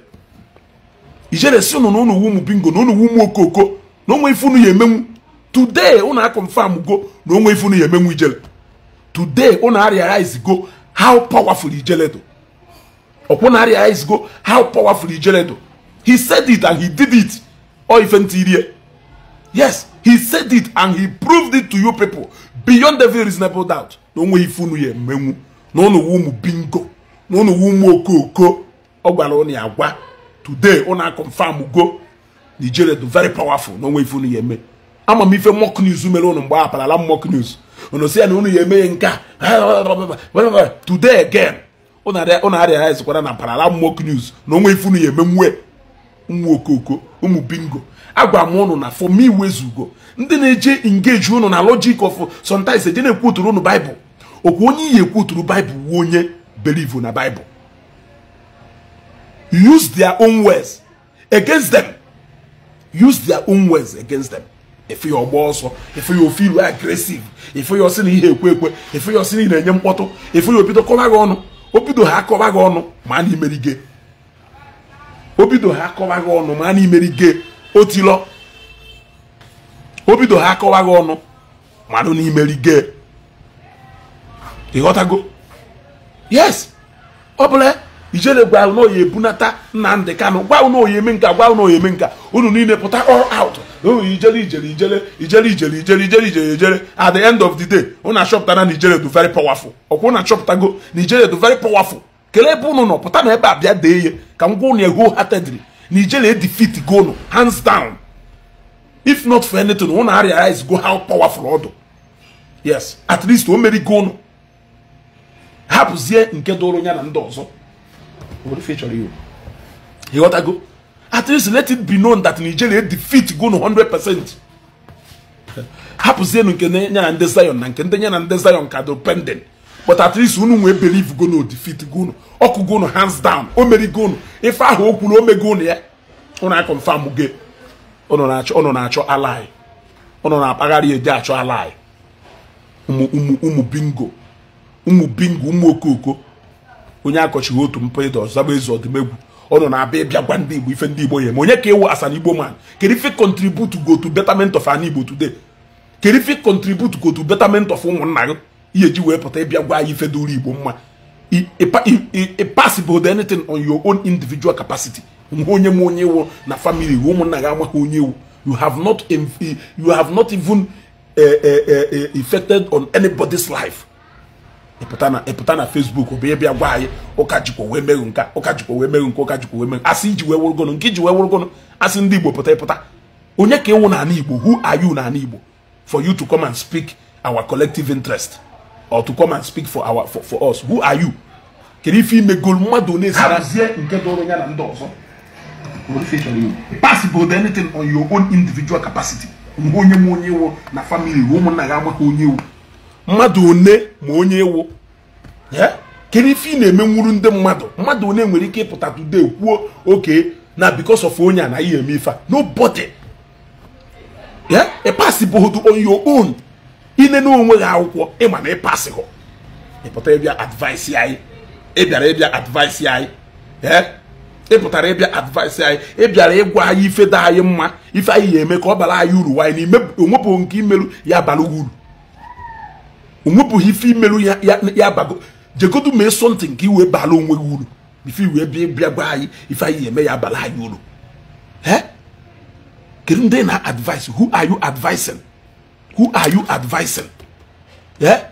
ijele si ụnụ na ụnụ umu bingo na ụnụ umu okoko na onwe ifunu ụnụ ya emenwu today ụnụ akọmfam go na onwe ifunu ụnụ ya emenwu ijele today ụnụ ariarize go how powerful ijele do ọkwụnụ ariarize go how powerful ijele do he said it and he did it ọ ife ntị yes he said it and he proved it to you people beyond every reasonable doubt na onwe ife unu ya emenwu na unu ụmụ bingo na unu wu ụmụ okooko ọ gwara unu ya agwa today unu confirm go Nigeria do very powerful na onwe ife unu ya eme ama m ife mok news mere unu mgbe apalala m mock news unu si ya na unu ya eme nke a today again unu arịa ezikwara na apalala m mock news na onwe ife unu ya eme nwe ụmụ okooko ụmụ bingo agwa m ụnụ na for me wezugo ndị na-eje engage ụnụ na logic of sometimes eje na-ekwuturu ụnụ baịbụl okwu onye iyi ekwuturu baịbụl wuo onye believe na baịbụl use their own words against them use their own words against them efe ya ọgba ọsọ efe ya ofe ilu agresiv efe ya ọsị na ihe ekwe ekwe efe ya ọsị na enye mkpọtụ efe ya obido kọba gị ọnụ obido ha akọba gị ọnụ ma na imerige obido ha akọba gị ọnụ ma na imerige otilọ o bido ha akọwaghị ọnụ mmadụ na imerige ịghọtago yes ọbụla ijele gwa unu oyi ebunata Nnamdi Kanu gwa unu oyi eme nka gwa unu oyi eme nka unu niile pụta all out ijele ijele ijele ijele ijele ijele ijele ijele ijele at the end of the day unu achọpụtara na ijele du very powerful ọkwa unu achọpụtago na ijele du very powerful kelee ebe unu nọ pụta na ebe a bịa dee ihe ka m gwa unu wholeheartedly nigeria defeat gonu hands down if not for anything unu realize go how powerful ọ dị yes at least o meri gonu hapụzie nke dụrụ ya na ndị ọzọ ịghọtago at least let it be known that nigeria defeat gonu 100% hapụzienu nke ya na ndị zion na nke ndị ya na ndị zion ka dị pending but at least unu nwee believe go defeat go ọkụ go hands down o meri go ife ahụ o kwuru o mego unu ya unu a confirm ge unu na-achọ unu na-achọ alai unu na-akpagharị eje achọ alai ụmụ ụmụ ụmụ bingo ụmụ bingo ụmụ okooko. onye akọchighị otu mpụ ịdọ zaba ezu ọdịmegwu ọ nọ na-abịa ịbịa gwa ndị igbo ife ndị igbo ya ma onye ka ewu asan igbo man kedu ife contribute go to betterment of an igbo today kedu ife contribute go to betterment of ụmụnna gị iye ji wee pụta ịbịa gwa anyị feduru igbo mma ịpasibụld anything on your own individual capacity nwe onye m onye iwu na family iwu ụmụnna gị amaghị onye iwu you have not you have not even affected eh, eh, eh, on anybody's life ịpụta na ịpụta na Facebook ọ bụ ịbịa gwa anyị ụka jikwa wee meghụ nka ụka jikwa wee meghụ nka ụka jikwa wee meghụ asị iji wee wụrụgọnụ nke iji wee wụrụgọnụ asị ndị Igbo pụta ịpụta onye ka ịwụ n'ala Igbo who are you n'ala Igbo for you to come and speak our collective interest or to come and speak for our for, for us who are you kedu ife imegolu mmadụ na-esara nke doro ya na ndị ọzọ possible anything on your own individual capacity mgbe onye m onye ewu na family ụmụnna ya amaghị onye ewu mmadụ one ma onye ewu kedu ife ị na-emenwuru ndị mmadụ mmadụ one nwere ike ịpụta today kwuo oke na because of onye a na ihe eme ife a nobody yeah a possible on your own ine na onwe gị akwụkwọ ịma na ịpasịghọ ịpụtara ịbịa advaịsị anyị ịbịara ịbịa advaịsị anyị ee ịpụtara ịbịa advaịsị anyị ịbịara ịgwa anyị ife dị anyị mma ife anyị ga-eme ka ọ bara anyị uru nwaanyị na onwepụghị nke imerụ ya bara uru onwepụghị ife imerụ ya bago jegodu mee sọntị nke iwe bara onwe gị uru ife iwe bịa gwa anyị ife anyị ga-eme ya bara anyị uru ee kedu ndị na-advaịsị who are you advising who are you advising? Yeah?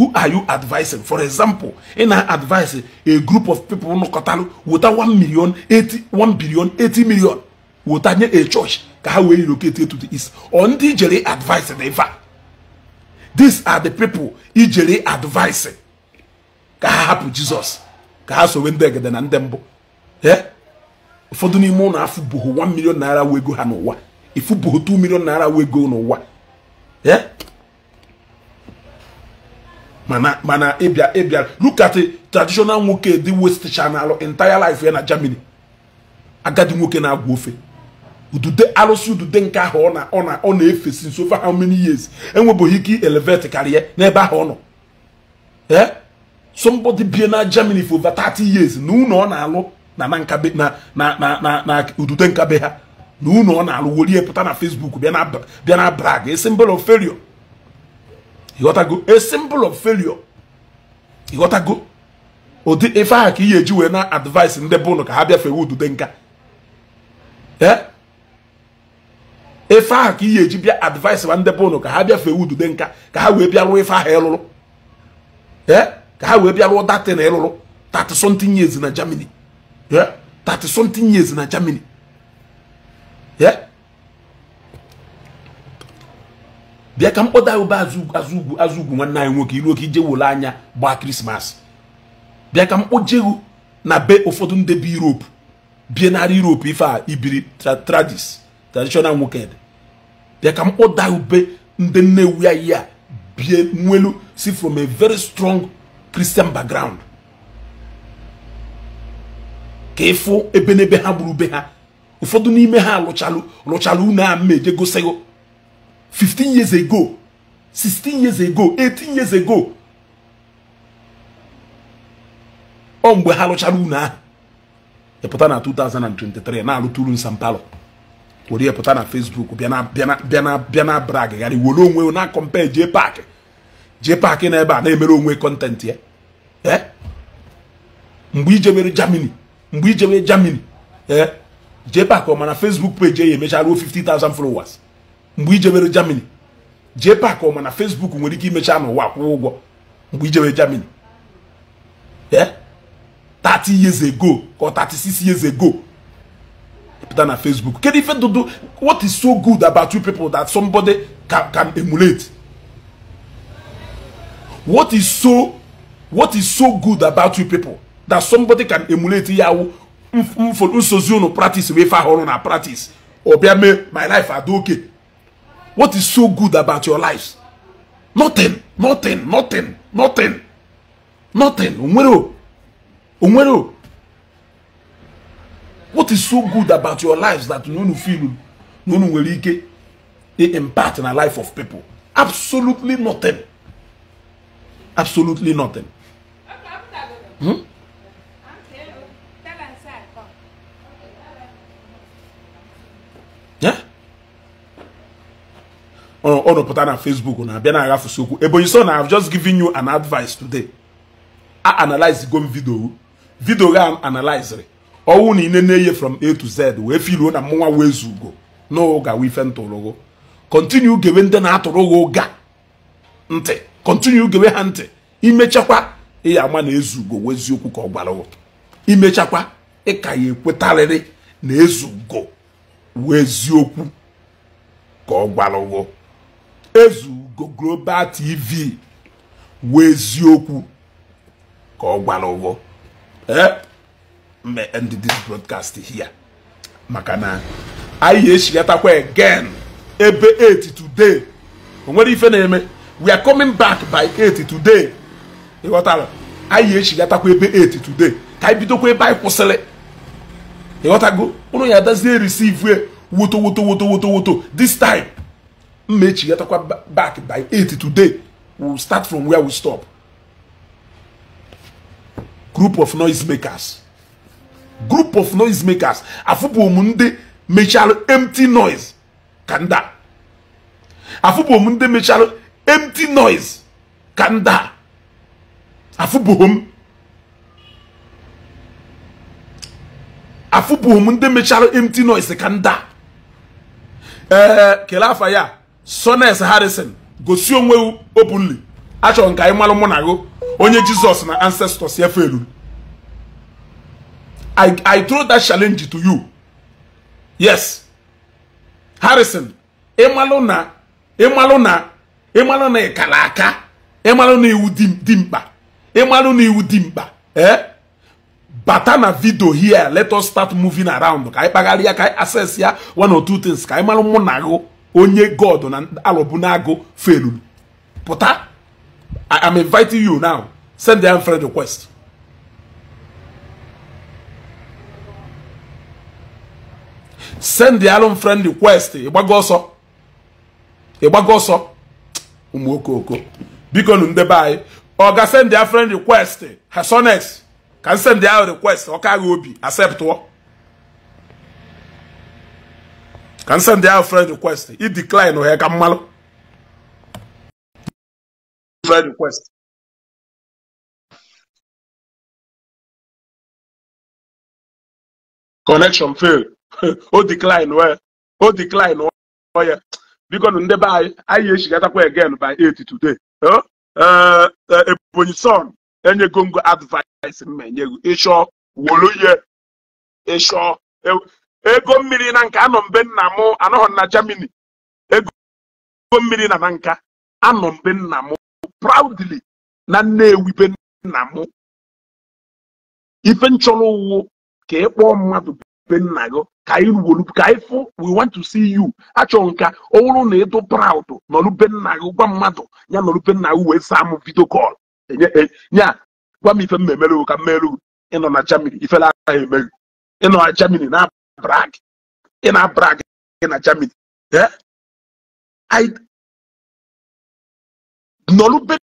Who are you advising? For example, in advice, a group of people no katalu without 1 million, 80, 1 billion, 80 million. a church, how we to the east. On the advice, These are the people ijele advising Ka ha hapụ ka ha sowe ndị egede na ndị mbụ. Ụfọdụ n'ime ụlọ afụ boho 1 million naira wego ha n'ụwa. Ifu boho 2 million naira wego n'ụwa. mana ịbịa ịbịa look at traditional nwoke dị west channel entire life ya na germany agadi nwoke na-agwa ofe udude arụsị udude nke ahụ ọ na efe since over how many years enwebeghị ike elevate karịa n'ebe ahụ ọ nọ ee somebody bie na germany for over 30 years na ụlọ ọ na-alụ na na nkabe ha na unu ọ na-alụ wolie pụta na Facebook bịa na brag a symbol of failure ịghọtago a symbol of failure ịghọtago ụdị ife ahụ ka ị ga-eji wee na advice ndị bụ ka ha bịa bịafewe udude nka eh? ife aha ka ị ga-eji bịa advice ma ndị bụ ka ha bịa bịafewe udude nka ka ha wee bịa rụọ ife aha ịlụrụ eh? ka ha wee bịa datị na ịlụrụ 30 something years na Germany 30 eh? something years na Germany bịa ka m kpọta ube azụ anyị nwoke iruo ije wole anya gbaa krismas bịa ka m kpojeghu na be ụfọdụ ndị bi europe bie narị europe ife a ibiri tradis traditional nwoke bịa ka m kpọda ube ndị nnewu ya ya bie nwelu si from a very strong christian background ka ịfụ ebe n'ebe ha gburu be ha ụfọdụ n'ime ha lụchalụ lụchalụ unu a mma 15 years ago 16 years ago 18 years ago ọ mgbe ha lụchara unu ahụ ịpụta e na 2023 na-alụtụrụ nsampalo were ya pụta na Facebook bịa na bịa na were onwe na akọmpe jee paakị jee paakị na ebe a na-emere onwe kọntentị ya ee eh? mgbe ijebere Germany mgbe ijebere Germany ee eh? JPAC mana Facebook page ya emechaa ruo 50,000 followers mgbe ijebere Germany JPAC mana Facebook nwere ike imecha n'ụwa kwụọ ụgwọ mgbe ijebere Germany ee eh, 30 years ago or 36 years ago e pụta na Facebook kedu ife dudu what is so good about you people that somebody can, can emulate what is so what is so good about you people that somebody can emulate yawo nsozi unu practice wee fa na practice obiame mee my life adị okay what is so good about your life nothing nothing nothing nothing nothing onwere onwere what is so good about your lives that unu feel na unu nwere ike impact na life of people absolutely nothing absolutely nothing hmm? ọ rụpụta na Facebook na-abịa na-aghafusi okwu Ebonyi so na I've just given you an advice today a analyze go m video video ga analyzere ọwụ na ine na-eye from A to Z wee filuo na mụnwa wee zugo n'ụga ife ntụrụgụ continue gewe ndị na-atụrụghị ụga ntị continue gewe ha ntị imechakwa ịya ama na ezugo weziokwu ka ọ gwara imechakwa ịka ya ekwetarịrị na ezugo wụ eziokwu ka ọ ụgwọ ezu global tv wụ eziokwu ka ọ ụgwọ mgbe ndị this broadcast here maka na anyị eshigatakwa again ebe 8 today o nwere ife na-eme we are coming back by 8 today ịghọtara anyị eshigatakwa ebe 8 today ka anyị bidokwa ebe anyị kwụsịrị ịghọtago ụrụ ya adazie receive e, woto woto woto woto woto this time mmechigatakwa back by 8 today we'll start from where we stop group of noise makers group of noise makers afụbụ m ndị mechara empty noise ka nda afụbụ m ndị mechara empty noise ka nda afụbụ m afụpụghị m ndị mechara empty noise ka nda ee eh, kelee afa ya sones harrison gosi onwe openly achọrọ ka anyị malụ mụ na onye jizọs na ancestors ya felu I, I throw that challenge to you yes harrison na ịmalụ na ịmalụ na ịkara aka ịmalụ na iwu dị mkpa ịmalụ na iwu dị mkpa ee eh? bata na vidio here let us start moving around ka anyị kpagharị ya ka anyị access ya one or two things ka anyị mara mụ na agụ onye god na alọbụ na agụ pụta i am inviting you now send them friend request send them friend request ịgbago ọsọ ịgbago ọsọ ụmụ okoko biko nụ ndebe anyị ọ ga send their friend request hasonex can send ahụ request ọka agha obi what can send ahụ friend request i decline ha ka mmalụ friend request connection fail o decline wee o decline ọya biko ndị be anyị get up again by 8 today eh, eh, ebonyi son enyego ngo advice m enye ịchọ wolu ihe ịchọ e, ego mmiri na nka anọ mbe nna m anọghị na Germany ego mmiri na na nka anọ mbe nna m proudly na Nnewi be nna m ife nchọrọ ụwụ ka ị kpọọ mmadụ be nna gị ka anyị ruwolu ka ị fụ we want to see you achọ nka ọ wụrụ na ịdụ proud nọrụ be nna gị gwa mmadụ ya nọrụ be nna gị wee saa m video call nya e, gwa m ife m na-emere ka m mere ịnọ na Germany ifele agaghị emeghị ịnọ na Germany na brag ị na brag na Germany nọrụ be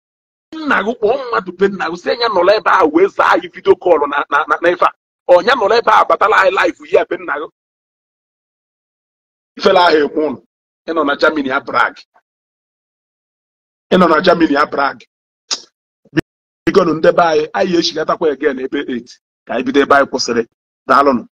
nna gị kpọọ mmadụ be nna gị si nya nọrọ ebe a wee zaa anyị vidio kọlụ na na ife a ọnya nọrọ ebe ahụ batala anyị laif ya be nna gị ifele ahụ eme ụnụ ịnọ na Germany a brag ịnọ na Germany a brag ndị be anyị anyị echigatakwa egen ebe 8 ka anyị bido ebe anyị kwụsịrị daalụnụ